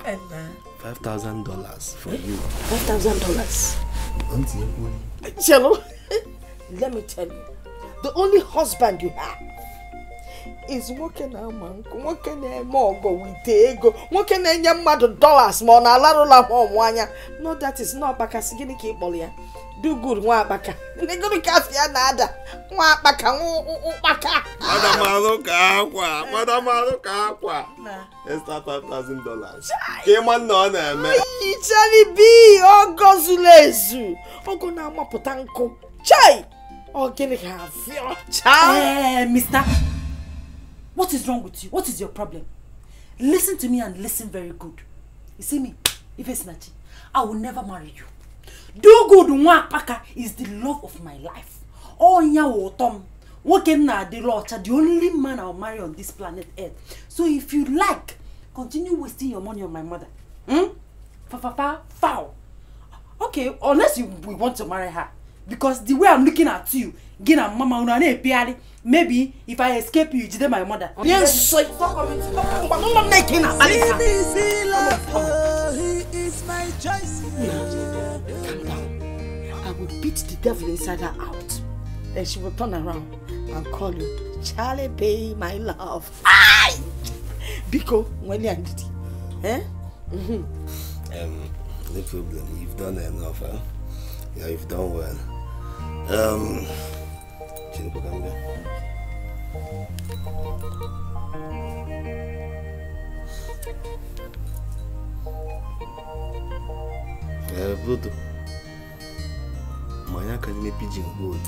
E: 5000 dollars for you
C: 5000 dollars
E: [laughs]
C: let me tell you the only husband you have is nwoke na-ama nkụ nwoke na-eme ọgọ wite ego nwoke na-enye mmadụ dollars ma ọ na-alarụla m ọmụ anya no that is not ọkpakasị gịnị ka ị kpọrọ ya do good nwa akpaka negoro kasị ya na-ada nwa akpaka ụkpaka
E: madamalụ ka akwa madamalụ ka akwa extra 5000 dollars ka ịma nna ọ na-eme
C: icheri bi ọgọ zuru ezu ọgọ na-amapụta nkụ chai ọ gịnị ga-afịọ chai eh, mista What is wrong with you? What is your problem? Listen to me and listen very good. You see me, if it's Sinachi, I will never marry you. Do good Nwapaka is the love of my life. Onya Wotom, Wokenna Adelocha, the only man I'll marry on this planet Earth. So if you like, continue wasting your money on my mother. Hmm? Fa fa fa foul. Okay, unless you we want to marry her. Because the way I'm looking at you, gị mama unu na-epigharị maybe if i escape you jide my mother onye nsọ nwa m na-eke na akpali ka I will beat the devil inside her out. Then she will turn around and call you, Charlie Bay, my love. I. Biko, when you Eh? mm
A: Um,
E: no problem. You've done enough, huh? Yeah, you've done well. Um, Eh, Bruto. Manya ka nne pidgin gold.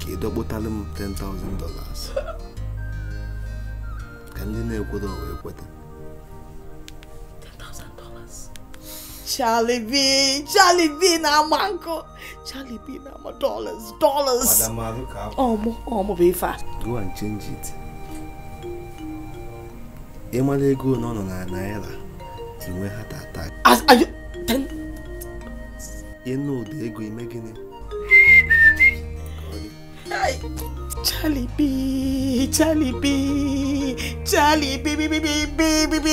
E: Ka ịdọkpụtalụ m $10,000. Ka ndị na-ekweta ọwa ekweta.
C: $10,000. Charlie B! Charlie B na-agba nkụ! Charlie pay now my dollars, dollars. ọmụ I
E: Go and change it. Emala ego no no na naira. Inwe heart attack.
C: As are you then?
E: You ego ime gini.
C: Charlie B, Charlie B, Charlie B, B, B, B, B, B, B.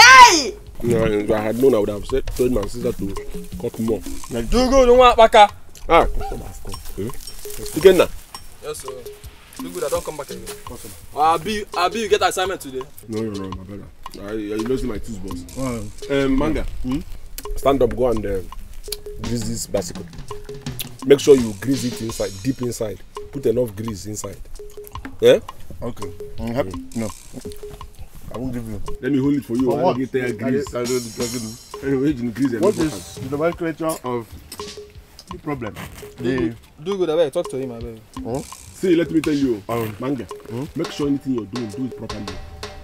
C: Hey!
A: No, if I had known, I would have said, told my sister to cut more. Now, do go, don't want back. Ah, customer has come. Hmm? Again now? Yes, sir. Do good, I don't come back again. Customer. Uh, I'll be. you get assignment today? No, you're wrong, my brother. I, I losing my tools, boss. Oh. Um, Manga, hmm? stand up, go and uh, grease this bicycle. Make sure you grease it inside, deep inside. Put enough grease inside.
B: Yeah? Okay.
A: I'm mm-hmm. happy. No. I won't give you. Let me hold it for you. For what? Get there, I don't fucking.
B: Anyway, in grease. What is the nomenclature of the problem? The
E: do good. Abeg, talk to him. Abeg.
A: Huh? See, let me tell you, um, manga. Huh? Hmm? Make sure anything you're doing, do it properly.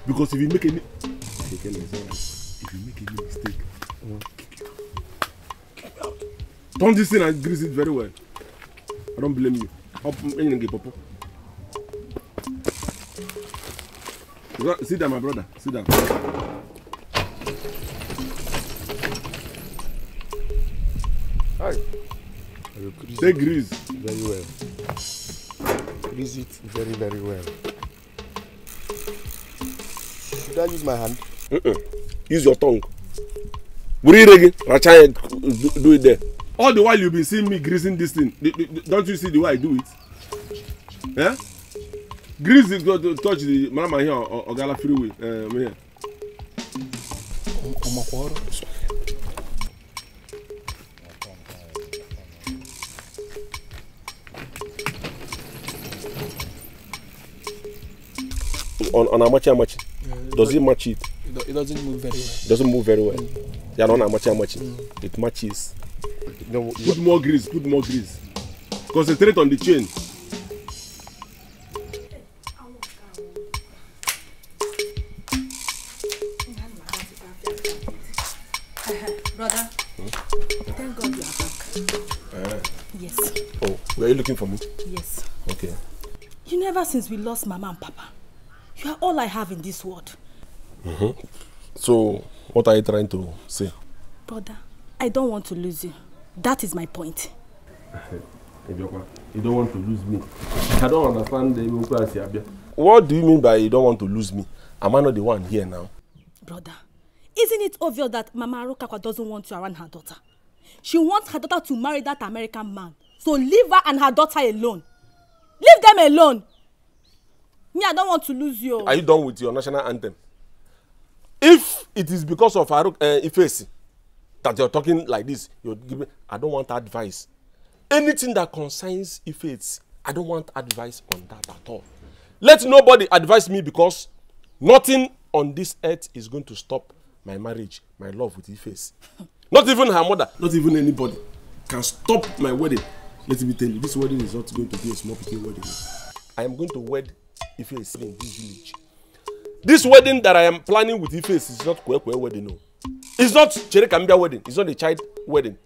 A: Because if you make any, if you make any mistake, huh? Hmm? kick you out. Kick me out. Turn this in and grease it very well. I don't blame you. Up, mm, anything, popo. Bro, sit down, my brother. Sit down.
B: Hi. Grease Say grease. Very well. Grease it very, very well. Should I use my hand? Mm -mm. Use your tongue.
A: Breathe again. Racha, do it there. All the while you've been seeing me greasing this thing. Don't you see the way I do it? Yeah? Grease is going to touch the mama here or, or Gala freeway. Um, here. On, on how much, how much? Yeah, Does it match it?
B: It doesn't move very well. doesn't move very well. Mm. Yeah, on how much, how much? Mm.
A: It matches. No, put more grease, put more grease. Concentrate on the chain. looking for me? Yes. Okay.
C: You never since we lost Mama and Papa, you are all I have in this world.
A: Mm-hmm. So, what are you trying to say?
C: Brother, I don't want to lose you. That is my point.
A: [laughs] you don't want to lose me. I don't understand the What do you mean by you don't want to lose me? Am I not the one here now?
C: Brother, isn't it obvious that Mama Arokakwa doesn't want you around her daughter? She wants her daughter to marry that American man to leave her and her daughter alone leave them alone me i don want to lose you. are you
A: done with your national anthem if it is because of farouk uh, eh, ifeasi that you are talking like this you give me i don want advice anything that concerns ifeasi i don want advice on that at all let nobody advise me because nothing on this earth is going to stop my marriage my love with ifeasi [laughs] not even her mother not even anybody can stop my wedding Let me tell you, this wedding is not going to be a small picking wedding. I am going to wed Ife in this village. This wedding that I am planning with Ife is not Kwekwe wedding, no. It's not Cherekambia wedding. It's not a child wedding.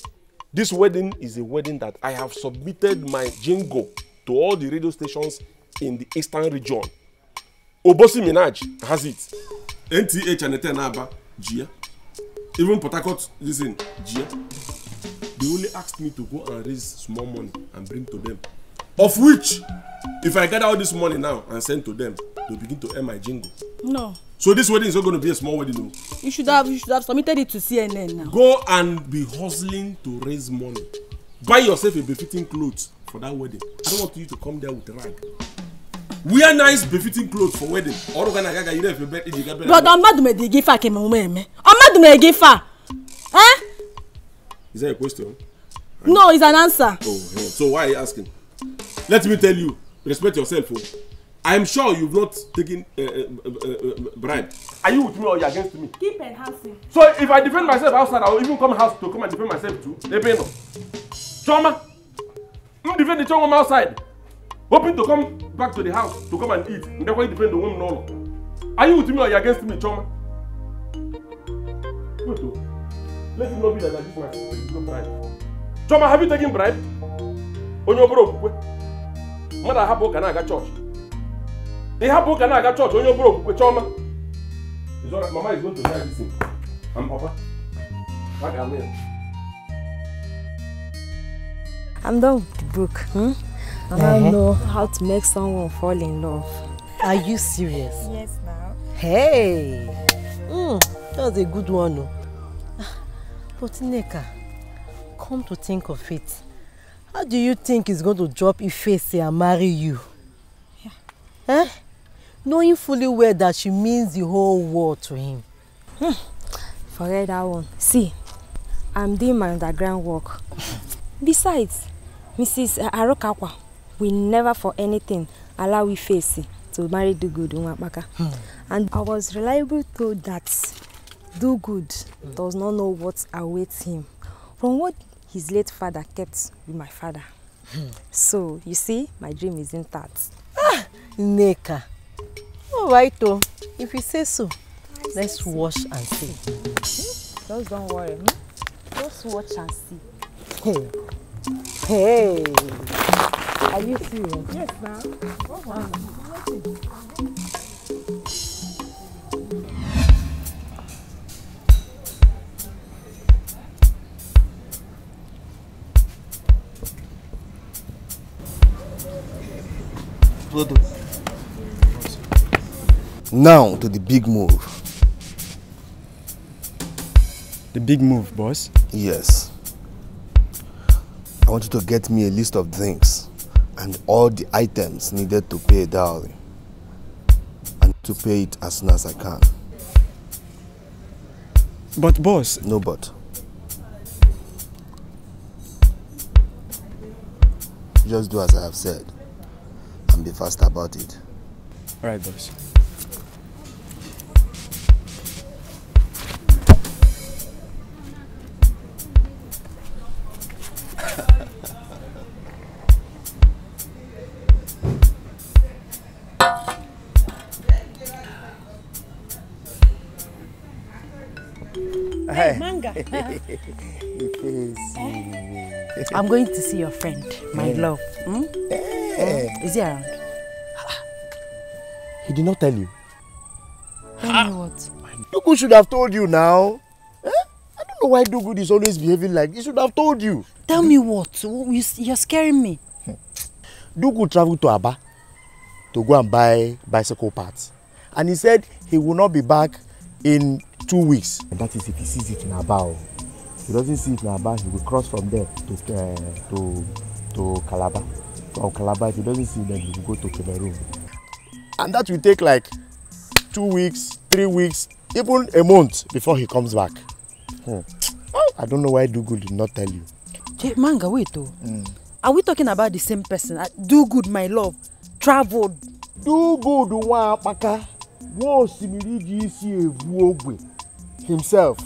A: This wedding is a wedding that I have submitted my jingo to all the radio stations in the eastern region. Obosi Minaj has it. NTH and Eten Aba, Gia. Even Port Harcourt, listen, Gia they only asked me to go and raise small money and bring to them of which if i gather all this money now and send to them they begin to earn my jingle. no. so this wedding is not going to be a small wedding o. No?
C: you should have you should have submitted it to cnn now.
A: go and be hustling to raise money buy yourself a befitting cloth for that wedding i don't want you to come there with rag wear nice befitting cloth for wedding ọdún
C: kan náà gàgà yìí rẹ fi bẹ ẹjì gàbẹrẹ. bọ̀dọ̀ ọmọdùnmẹ̀dì gífà kìmọ̀ ọmọ ẹ̀mẹ́ ọmọdùnmẹ̀dì gífà ẹ́.
A: Is that a question? Right.
C: No, it's an answer.
A: Oh, yeah. so why are you asking? Let me tell you, respect yourself. Oh. I'm sure you've not taken uh, uh, uh, bribe. Are you with me or you against me?
C: Keep enhancing.
A: So if I defend myself outside, I will even come house to come and defend myself too. Ebeno. Choma. I'm defending Choma outside. Hoping to come back to the house to come and eat. And that's defend the woman. No, no. Are you with me or you against me, Choma? Good let it not be that like this man bribe Chioma have you taken bribe onye obere okwukwe mmadụ ahapụ ụka na-aga chọọchị ịhapụ ụka na-aga chọọchị onye obere okwukwe Chioma mama is going to die this thing and papa
C: a ga-anụ I'm done with the book. Hmm? I don't uh-huh. know how to make someone fall in love. Are you serious? Yes, ma'am. Hey! Mm, that was a good one. Oh. But Neka, come to think of it, how do you think he's going to drop Ifeanyi and marry you? Yeah. Eh? Knowing fully well that she means the whole world to him. Hmm. Forget that one. See, I'm doing my underground work. [laughs] Besides, Mrs. Arokawa, will never for anything allow Ifeanyi to marry the good Nwapaka. Hmm. And I was reliable told that do good does not know what awaits him from what his late father kept with my father. So, you see, my dream is intact. Ah, Nneka. All right, oh, If you say so, I let's say wash so. and see. Hmm? Just don't worry. Hmm? Just watch and see. Hey. Hey. Are you serious? Yes, ma'am.
E: product. Now to the big move. The big move, boss? Yes. I want you to get me a list of drinks and all the items needed to pay a dowry and to pay it as soon as I can. But boss... No but. Just do as I have said and be fast about it.
B: All right, boys. Hey, manga. [laughs]
C: I'm going to see your friend, my love. Hmm? Yeah. Is he around? Ah.
B: He did not tell you. Tell ah. me what? Dugu should have told you now. Eh? I don't know why Dugu is always behaving like he should have told you. Tell me what? You're
C: scaring me.
B: Dugu traveled to Aba to go and buy bicycle parts. And he said he will not be back in two weeks. And that is if he sees it in Aba. If he doesn't see it in Aba, he will cross from there to, uh, to, to Calabar or Calabar, if he doesn't see them, he go to Cameroon. And that will take like two weeks, three weeks, even a month before he comes back. Hmm. I don't know why Dugu did not tell you.
C: Hey, manga, wait, oh. Mm. Are we talking about the same person? Uh, Do good, my love. Traveled. Do good, one, paka.
B: One, simili, gisi, evu, ogwe. Himself.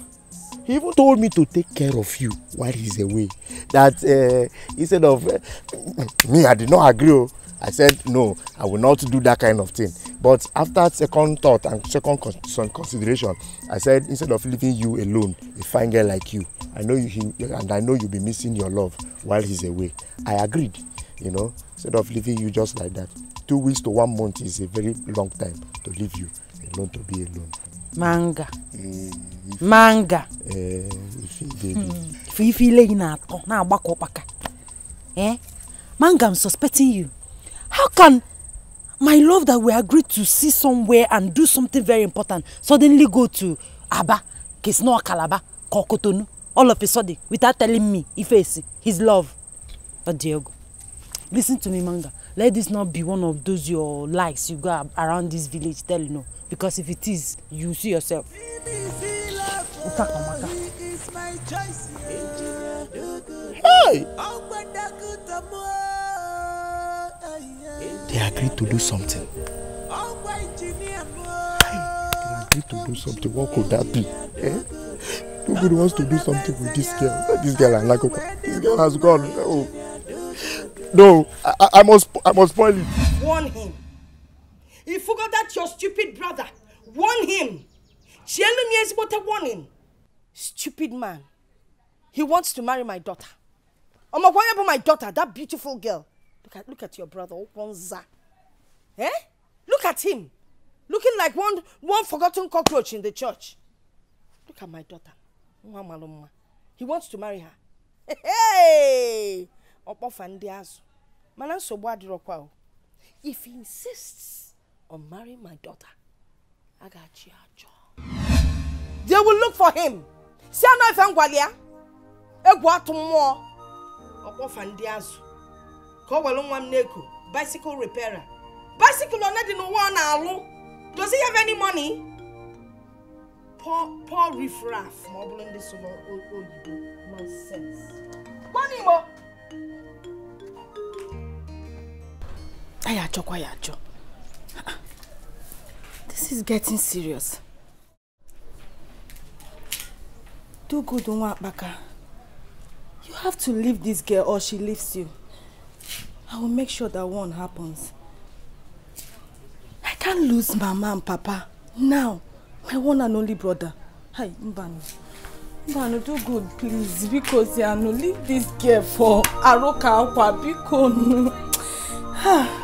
B: He even told me to take care of you while he's away. That uh, instead of uh, me, I did not agree. Oh, I said no, I will not do that kind of thing. But after second thought and second con consideration, I said instead of leaving you alone, a fine girl like you, I know you he, and I know you'll be missing your love while he's away. I agreed, you know, instead of leaving you just like that. Two weeks to one month is a very long time to leave you alone to be alone
C: manga mm. manga ife ile ị na-atọ na-agbakọ ụkpaka manga i'm suspecting you how can my love that we agreed to see somewhere and do something very important suddenly go to aba kesno calabar kokotonu all of a sudden without telling me ifeesi his love but diego listen to me manga let this not be one of those your lies you go around this village tell you no because if it is you see yourself. Hey!
B: They agreed to do something. They agreed to do something. What could that be? Eh? Nobody wants to do something with this girl. This girl and Lakoka. This girl has gone. Oh. No, I, I must I must spoil it.
C: Warn him. He forgot that your stupid brother. Warn him. Chielumi is but a warning. Stupid man. He wants to marry my daughter. I'm why about my daughter, that beautiful girl? Look at look at your brother, Okwanza. Eh? Look at him. Looking like one one forgotten cockroach in the church. Look at my daughter. He wants to marry her. [laughs] hey. ọkpọfa ndị azụ mana nsogbu kwa o if he insists on marrying my daughter a ga-achị ajọ they will look for him si anọ ife ngwali ya egwu atụ mmụọ ọkpọfa ndị azụ ka ọ were nwa m n'eko bicycle repairer bicycle one dị n'ụwa ọ na-alụ does he have any money poor riffraff ma ọ bụrụ ndị so n'oyibo nonsense. Money, Ayajo kwa Ayajo. This is getting serious. Do good, Baka. You have to leave this girl or she leaves you. I will make sure that one happens. I can't lose Mama and Papa now. My one and only brother. Hi, Mbano. Mbano, do good, please. Because, Yano, leave this girl for Aroka Akwa. Because, [sighs]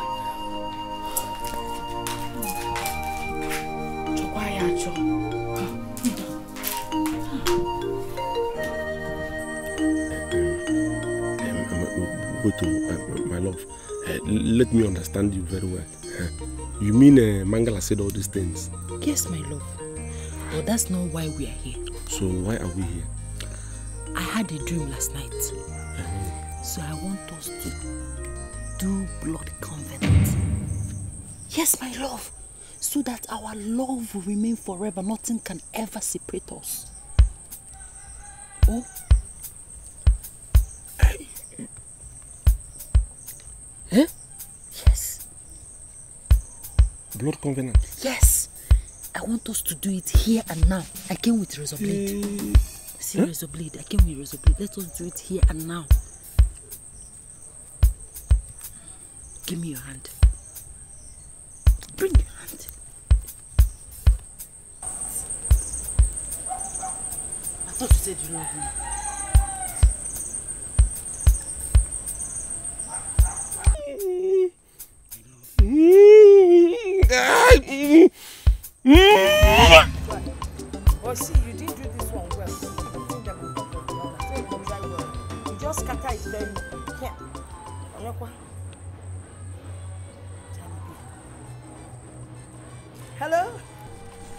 A: love. Uh, let me understand you very well. Uh, you mean uh, Mangala said all these things?
C: Yes, my love. But that's not why we are here.
A: So why are we here?
C: I had a dream last night. -huh. So I want us to do blood covenant. Yes, my love. So that our love will remain forever. Nothing can ever separate us. Oh, Huh? Yes. Blood covenant? Yes. I want us to do it here and now. I came with razor blade. Uh, See huh? razor blade. I came with razor blade. Let us do it here and now. Give me your hand. Bring your hand. I thought you said you love me. Hello?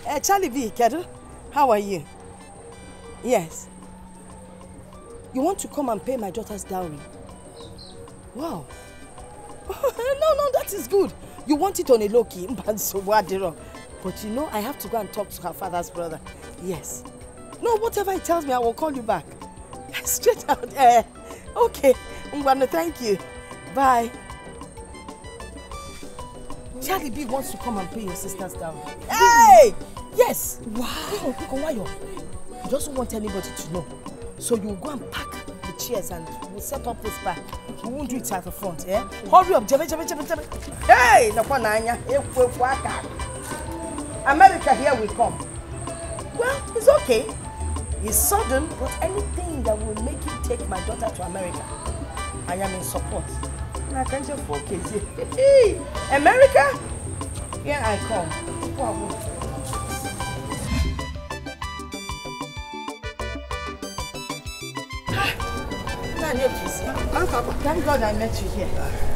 C: Uh, Charlie V. Kedu. How are you? Yes. You want to come and pay my daughter's dowry? Wow. [laughs] no, no, that is good. You want it on a low key, [laughs] but you know I have to go and talk to her father's brother. Yes. No, whatever he tells me, I will call you back. [laughs] Straight out. Uh, okay, I'm gonna thank you. Bye. Charlie B wants to come and pay your sisters down. Hey! Yes. Wow. You just don't want anybody to know. So you go and pack the chairs and we'll set up this bar. we won't do it at the front eh hurry up jebe jebe jebe jebe hey nọkwa n'anya ekwu ekwu aka america here we come well it's okay it's sudden but anything that will make you take my daughter to america i am in support na kanje for kezie [laughs] america here i come. Wow. Hello, Papa. Thank God I met you here.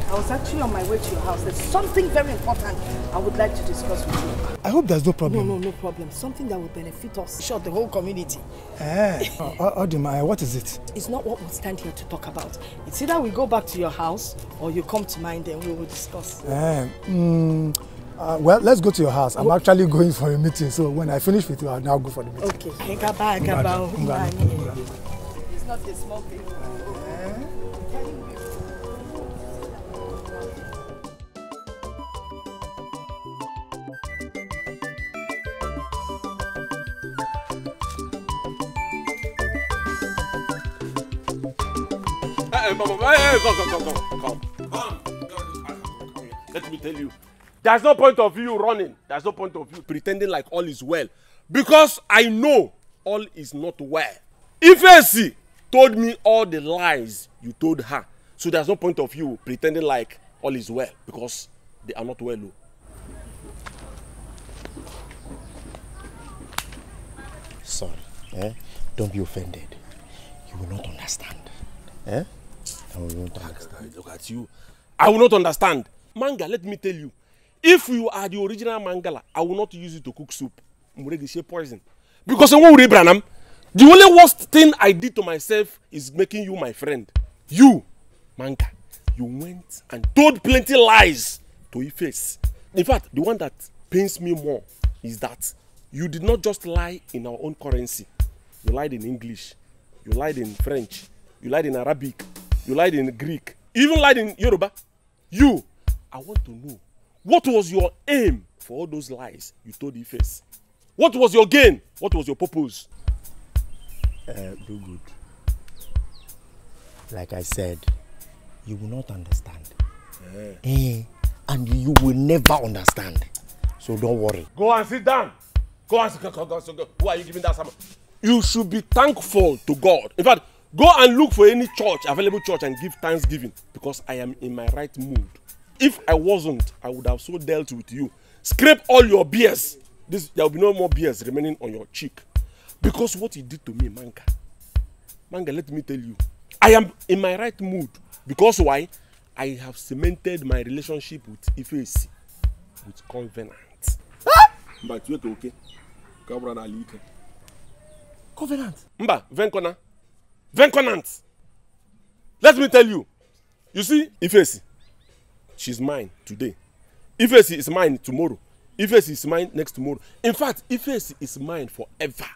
C: I was actually on my way to your house. There's something very important I would like to discuss with you. I hope there's no problem. No, no, no problem. Something that will benefit us, sure, the whole community.
B: Eh, eh Odima, eh, what is it?
C: It's not what we stand here to talk about. It's either we go back to your house or you come to mine, then we will discuss.
B: Eh, mm, uh, well, let's go to your house. I'm okay. Oh. actually going for a meeting, so when I finish with you, I'll now go for the meeting. Okay.
C: It's not a small thing.
A: Hey, Come. Let me tell you. There's no point of you running. There's no point of you pretending like all is well. Because I know all is not well. Ifesi told me all the lies you told her. So there's no point of you pretending like all is well. Because they are not well. Oh.
B: Sorry. Eh? Don't be offended. You will not understand. Eh? I will not understand. Look at you. I will
A: not understand. Manga, let me tell you. If you are the original mangala, I will not use it to cook soup. Muregishe poison. Because I won't branam. The only worst thing I did to myself is making you my friend. You, manga, you went and told plenty lies to your face. In fact, the one that pains me more is that you did not just lie in our own currency. You lied in English. You lied in French. You lied in Arabic you lied in Greek, you even lied in Yoruba. You, I want to know what was your aim for all those lies you told Ife? What was your gain? What was your purpose?
B: Uh, do good. Like I said, you will not understand. Yeah. Eh, and you will never understand. So don't worry. Go and sit down.
A: Go and sit down. Who are you giving that sermon? You should be thankful to God. In fact, go and look for any church available church and give thanksgiving because i am in my right mood if i wasnt i would have so dealt with you scrape all your beers this there will be no more beers remaining on your cheek because what you did to me manga manga let me tell you i am in my right mood because why i have cemented my relationship with ifeesi with covenant. Ah! mba tiwe ka oke ka ọ bụrụ na ala ike. covenant. mba venkona venconant let me tell you you see ifesi she's mine today ifesi is mine tomorrow ifesi is mine next tomorrow in fact ifesi is mine forever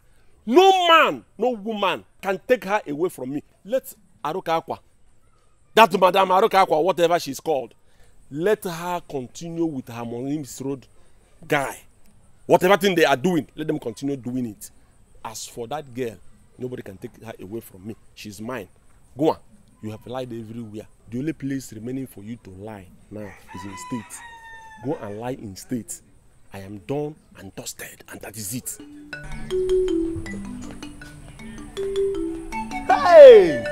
A: no man no woman can take her away from me let aruka akwa that madam aruka akwa whatever she is called let her continue with her monimis road guy whatever thing they are doing let them continue doing it as for that girl Nobody can take her away from me. She's mine. Go on. You have lied everywhere. The only place remaining for you to lie now is in state. Go and lie in state. I am done and dusted, and that is it.
B: Hey!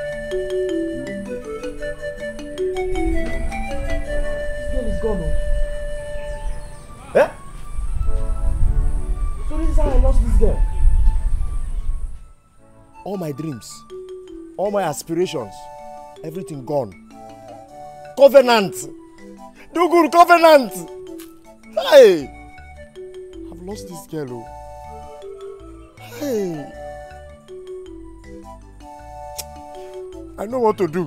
B: This is gone. Eh?
C: So this is how I lost this girl.
B: all my dreams all my aspirations everything gone covenant do good covenant hey i've lost this girl o oh. hey i know what to do.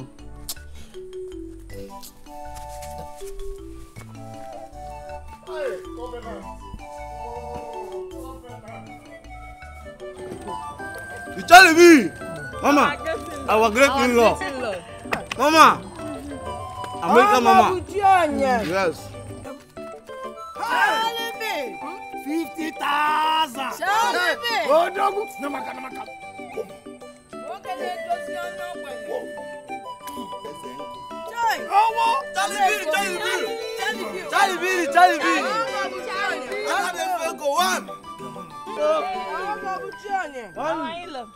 C: You tell me, Mama, our great in law. Mama, America Mama.
D: Yes.
B: Fifty thousand. Oh, dog. No, my God, no, my God.
D: Owó Tálíbìrì Tálíbìrì
C: Tálíbìrì Tálíbìrì Tálíbìrì Tálíbìrì Tálíbìrì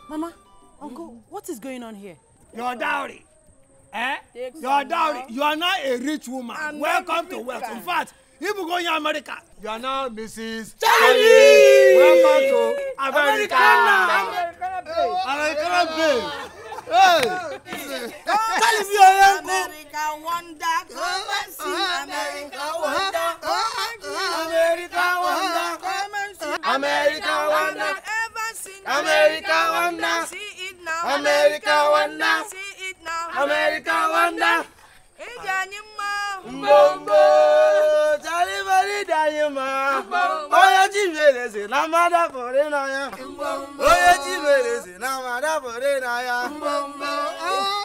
C: Mama, uncle, what is going on here? Your dowry. Eh? Take Your dowry. You are not a rich woman. I'm
B: Welcome to wealth. In fact, if you go in America, you are now Mrs. Charlie. Welcome to America. America, America, America, America.
C: America, me America America America America wonder. America wonder. See it now. America wonder. See it now. America wonder.
B: Mbombo, ma, danyuma. Oya chimele se
C: na mada pore na ya. Oya chimele se na mada pore na ya. Mbombo. Ah.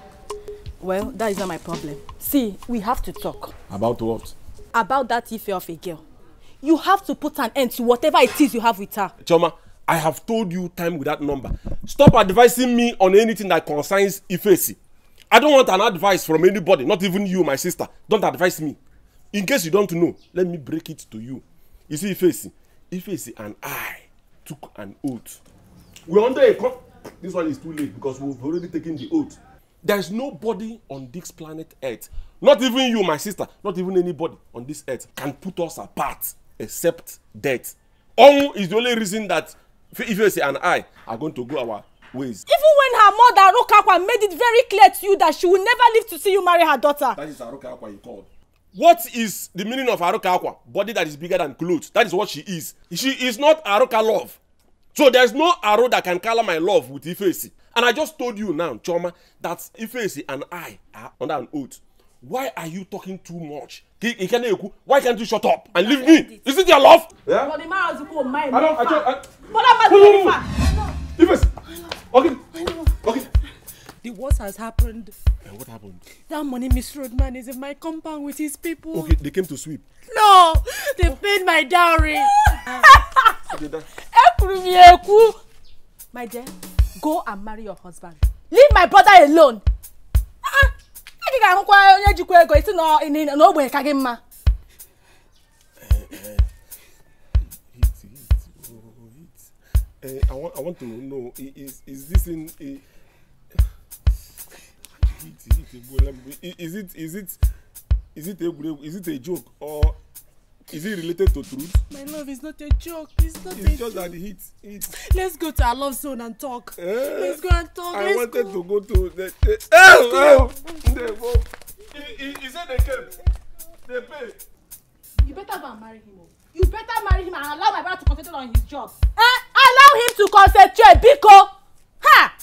C: Well, that is not my problem. See, we have to talk.
A: About what?
C: About that Ife of a girl. You have to put an end to whatever it is you have with her.
A: Choma, I have told you time with that number. Stop advising me on anything that concerns Ifesi. I don't want an advice from anybody, not even you, my sister. Don't advise me. In case you don't know, let me break it to you. You see, Ifesi, Ifesi and I took an oath. We're under a. This one is too late because we've already taken the oath there is nobody on this planet earth not even you my sister not even anybody on this earth can put us apart except death ọnwụ is the only reason that ifeanyi and i are going to go our ways.
C: even when her mother arukakwa made it very clear to you that she will never live to see you marry her daughter. that
A: is arukakwa you called. what is the meaning of arukakwa body that is bigger than cloth that is what she is she is not aruka love so there is no aro that can color my love with ifeanyi And I just told you now, Choma, that Ifeisi and I are ah, under an oath. Why are you talking too much? Why can't you shut up and leave me? Is it your love?
C: Yeah. the man has to my I don't. I don't. I... But that Okay. Okay. The worst has happened. And what happened? That money misroad man is in my compound with his people. Okay,
A: they came to sweep.
C: No, they oh. paid my dowry. Ekuru mi eku. My dear go and marry your husband leave my brother alone ị ga-ahụkwa onye jikwa ego isi na ogbenye ka gị mma
A: I want, to know is, is this in [sighs] is it is it is it is it a joke or Is it related to truth?
C: My love is not a joke. It's not it's a joke. It's just that hit. hit. Let's go to our love zone and talk. Uh, Let's go and talk. I Let's wanted to go to the. the oh, eh, oh, eh, they He he it the camp? They pay. You better go and marry him. Oh. You better marry him and allow my brother to concentrate on his job. Eh? Allow him to concentrate, Biko. Ha!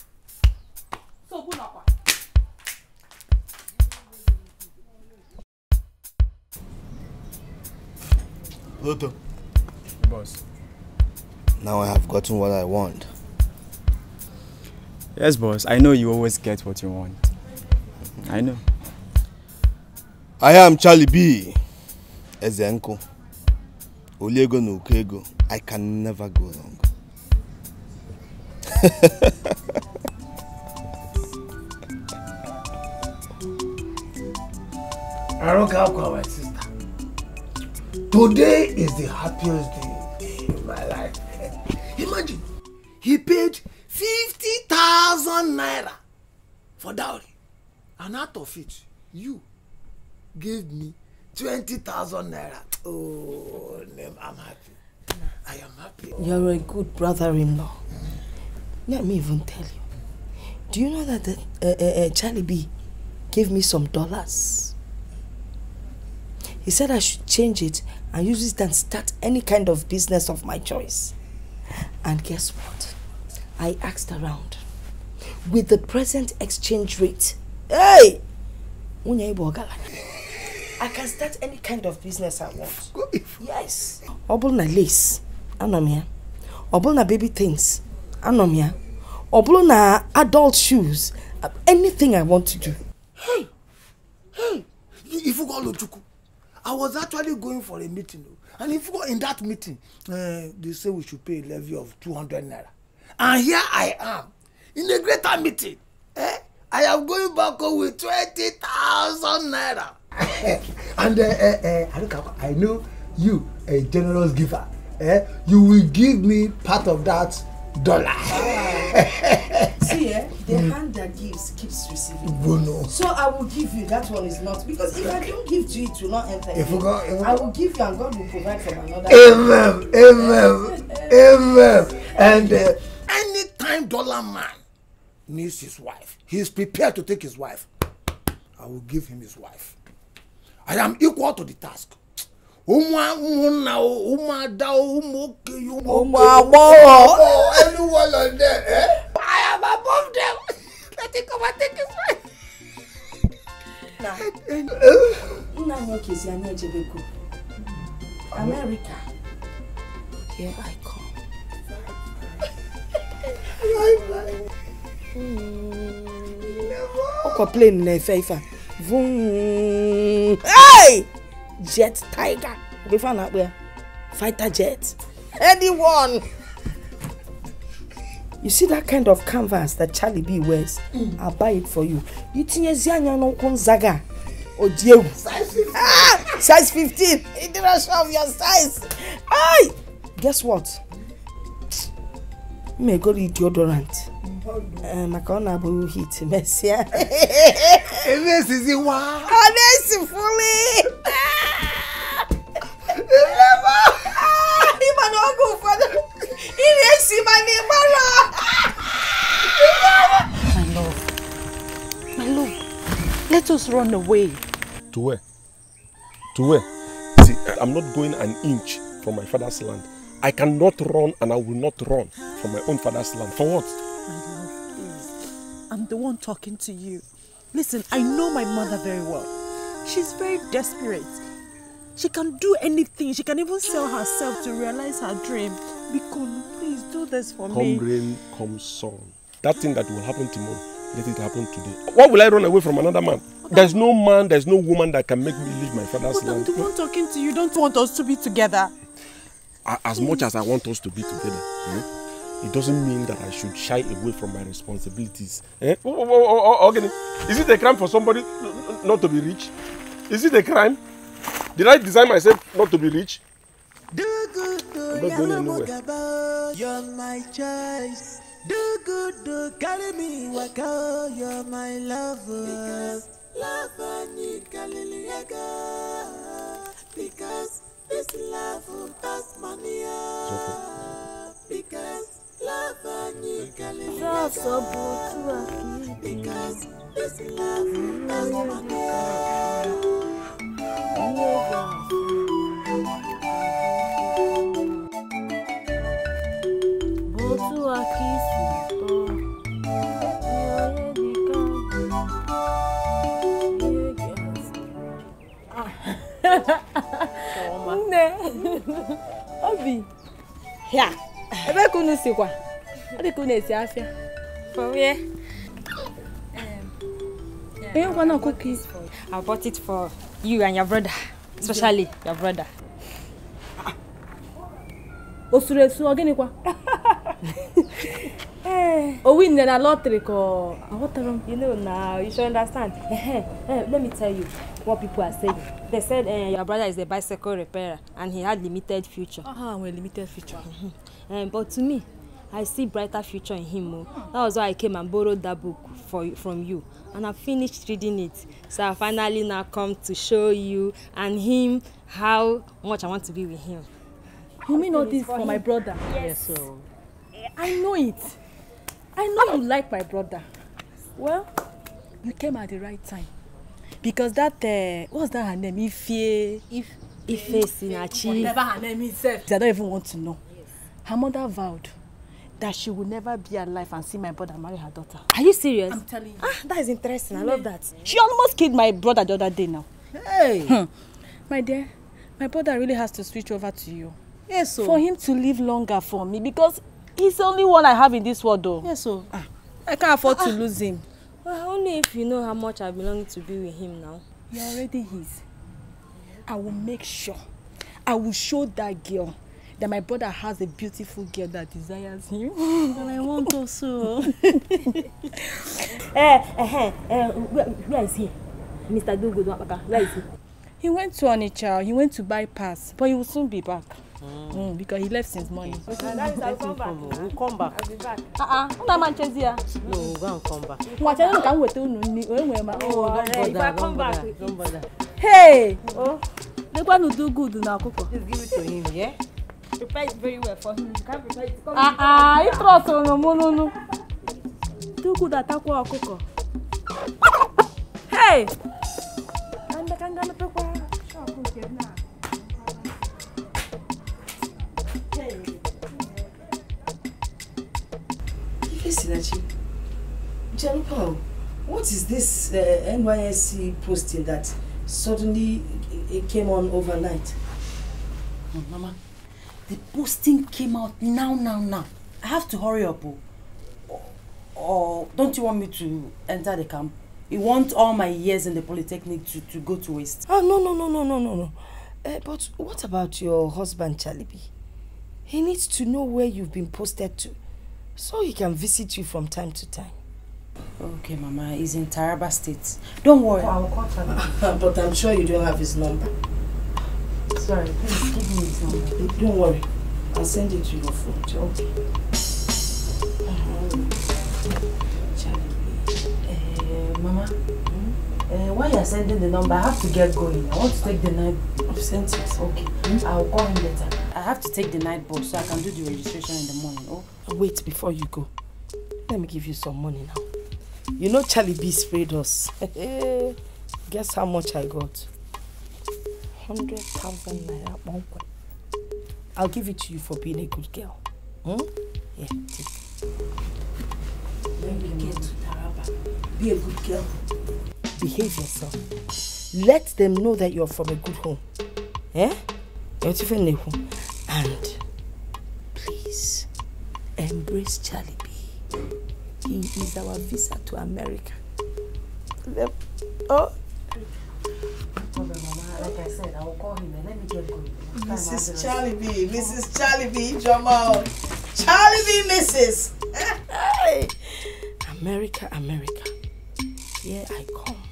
C: So, good luck.
B: Later. Boss. Now I have gotten what I want. Yes, boss. I know you always get what you want. I know. I am Charlie B. Ezenko. Olego
E: no Ukego. I can never go wrong.
B: [laughs] Aroka Kwawatsi. Today is the happiest day in my life. Imagine, he paid 50,000 naira for dowry. And out of it, you gave me 20,000 naira. Oh, I'm happy.
C: I am happy. You're a good brother-in-law. Let me even tell you. Do you know that the, uh, uh, uh, Charlie B gave me some dollars? He said I should change it and use it and start any kind of business of my choice. And guess what? I asked around. With the present exchange rate, hey! I can start any kind of business I want. Yes. Obulna lace, anomia. Obulna baby things, anomia. Obulna adult shoes, anything I want to do. Hey!
B: Hey! If you go I was actually going for a meeting o and if in that meeting uh, they say we should pay a levy of two hundred naira and here I am in a greater meeting eh, I am going back home with twenty thousand naira [laughs] and uh, uh, uh, Aruka I know you a generous giver eh? you will give me part of that dollar.
C: [laughs] See, eh, the mm. hand that gives keeps receiving. Bono. So I will give you. That one is not because if I don't give to you, it will not enter. If you God, if I will give you, and God will provide from another. Amen.
B: Amen. Amen. And uh,
C: anytime dollar man
B: needs his wife, he is prepared to take his wife. I will give him his wife. I am equal to the task umwanwunawo umadawo
C: umokeye umwamowo anyuwalande eh? I am above them. Let it come and take his wife. Now, Nna Nwoke is Yanni Ejebeko. America. Here I come. Ọkọ̀ hmm. plane na ẹ̀fẹ̀ ifá. Hey! jet tiger ogefa na akpọ ya fighter jet anyone. you see that kind of canvas that charlie b wears mm. i'll buy it for you you tinyezi anya n'ụkwụ nzaga odi egwu size fifteen in the rest of your size ay guess what go egoro deodorant mm-hmm. eh, maka ọ na-abụ hit mesịa
B: ọ
D: na-esi fuli.
C: Festus run away.
A: To where? To where? See, I'm not going an inch from my father's land. I cannot run and I will not run from my own father's land. For what?
C: please. I'm the one talking to you. Listen, I know my mother very well. She's very desperate. She can do anything. She can even sell herself to realize her dream. Bikon, please do this for come me. Come
A: rain, come sun. That thing that will happen tomorrow, let it happen today. Why will I run away from another man? There's no man, there's no woman that can make me leave my father's land. The
C: one talking to you don't want us to be together.
A: As much as I want us to be together, eh, it doesn't mean that I should shy away from my responsibilities. Eh? Oh, oh, oh, oh, okay. Is it a crime for somebody not to be rich? Is it a crime? Did I design myself not to be rich? Do
C: good, do I'm not going anywhere. You're my choice. Do good, do carry me, waka. You're my lover. Because Lafanyika
D: because this love of Tasmania because Lafanyika liliaga because this love of Tasmania. Botuaki.
C: nne obi ya ebe ka unu sikwa ọ dị ka unu esi afịa um, onye gwana ọkụkọ isi I bought it for you and your brother especially your brother ah. o suru esu ọ gịnịkwa [laughs] Eh. owi oh, na na lottery ko awotaro. Ah, you know now you should understand eh, eh, let me tell you what people are saying they said uh, your brother is a bicycle repairer and he had limited future. ah uh-huh, well limited future. um, but to me I see brighter future in him o oh. that was why I came and borrowed that book for from you and I finished reading it so I finally now come to show you and him how much I want to be with him. you mean all this for him. my brother. yes, yes so. Oh. I know it. I know you like my brother. Well, you came at the right time. Because that, uh, what's that her name? Ife. Ife, Sinachi. Whatever her name is. I don't even want to know. Her mother vowed that she would never be alive and see my brother marry her daughter. Are you serious? I'm telling you. Ah, that is interesting. I love that. She almost killed my brother the other day now. Hey! Hmm. My dear, my brother really has to switch over to you. Yes, so. Oh. For him to live longer for me because He's the only one I have in this world though. Yes, so ah, I can't afford to ah. lose him. Well, ah, only if you know how much I belong to be with him now. You're already his. I will make sure. I will show that girl that my brother has a beautiful girl that desires him. and [laughs] I want also. [laughs] Eh, eh, eh, eh, where, where is he? Mr. Dugu? where is he? He went to Onitsha. He went to bypass, but he will soon be back. Mm. Mm, because he left since morning. Okay, so that is our come back. We'll come back. I'll be back. Uh-uh. Ah, Una ah, here. No, we'll go come back. Mwacha no kan wetu nu ni. Oh, don't bother. If come back, don't bother. Hey! Oh. they want to do good now, Coco. Just give it to him, yeah? Prepare it very well for him. You can't prepare it. Ah, ah, you trust on no, no, no. Do good at Coco. Hey! And the kangaroo Isinachi, Jalupao, what is this uh, NYSC posting that suddenly it came on overnight? Oh, Mama, the posting came out now, now, now. I have to hurry up. Oh. or don't you want me to enter the camp? You want all my years in the Polytechnic to, to go to waste? Oh, no, no, no, no, no, no, no. Uh, but what about your husband, Chalibi? He needs to know where you've been posted to. So he can visit you from time to time. Okay, Mama, he's in Taraba State. Don't worry. I'll call Taraba. [laughs] but I'm sure you don't have his number. Sorry, please give me his number. Don't worry. I'll send it to your phone. Okay. Uh, Mama, uh, while you're sending the number, I have to get going. I want to take the night. I've sent it. Okay. Hmm? I'll call him later. I have to take the night bus so I can do the registration in the morning. Okay. Oh? Wait before you go. Let me give you some money now. You know Charlie B sprayed us. [laughs] Guess how much I got? 100,000 naira one way. I'll give it to you for being a good girl. Hmm? Yeah, take When we get to Taraba, be a good girl. Behave yourself. Let them know that you're from a good home. Eh? Yeah? You're even a And Embrace Charlie B. He is our visa to America. Oh. Like I said, I will call him Mrs. Charlie B. Mrs. Charlie B. Jamal. Charlie B. Mrs. Hey. America, America. Here I come.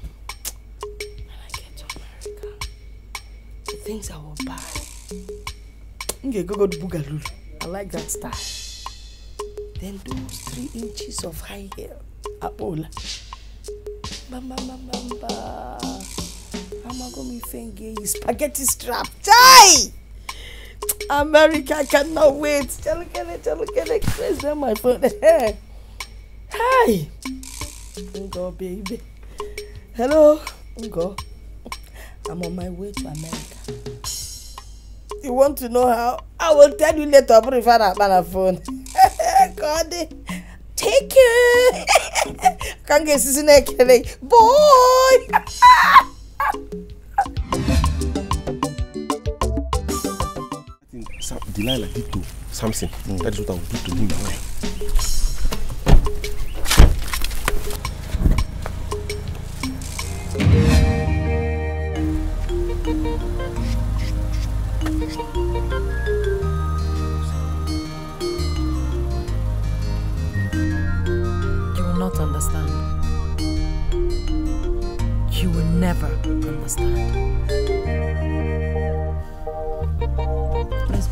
C: When I get to America, the things I will buy. Nge go go to I like that style. Then those three inches of high heel. Abola. Bam, bam, bam, bam, bam. Amagomi Fenge is spaghetti strap. Chai! America cannot wait. Look at it, look at it. Crazy on my phone. [laughs] Hi! Ngo, baby. Hello? Ngo. I'm on my way to America. You want to know how? I will tell you later, but if I on have phone. god take care kan ga esi na boy
A: Delilah did to something. Mm. That is what I would do to him now. thank you
C: never understand. Let's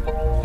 D: go.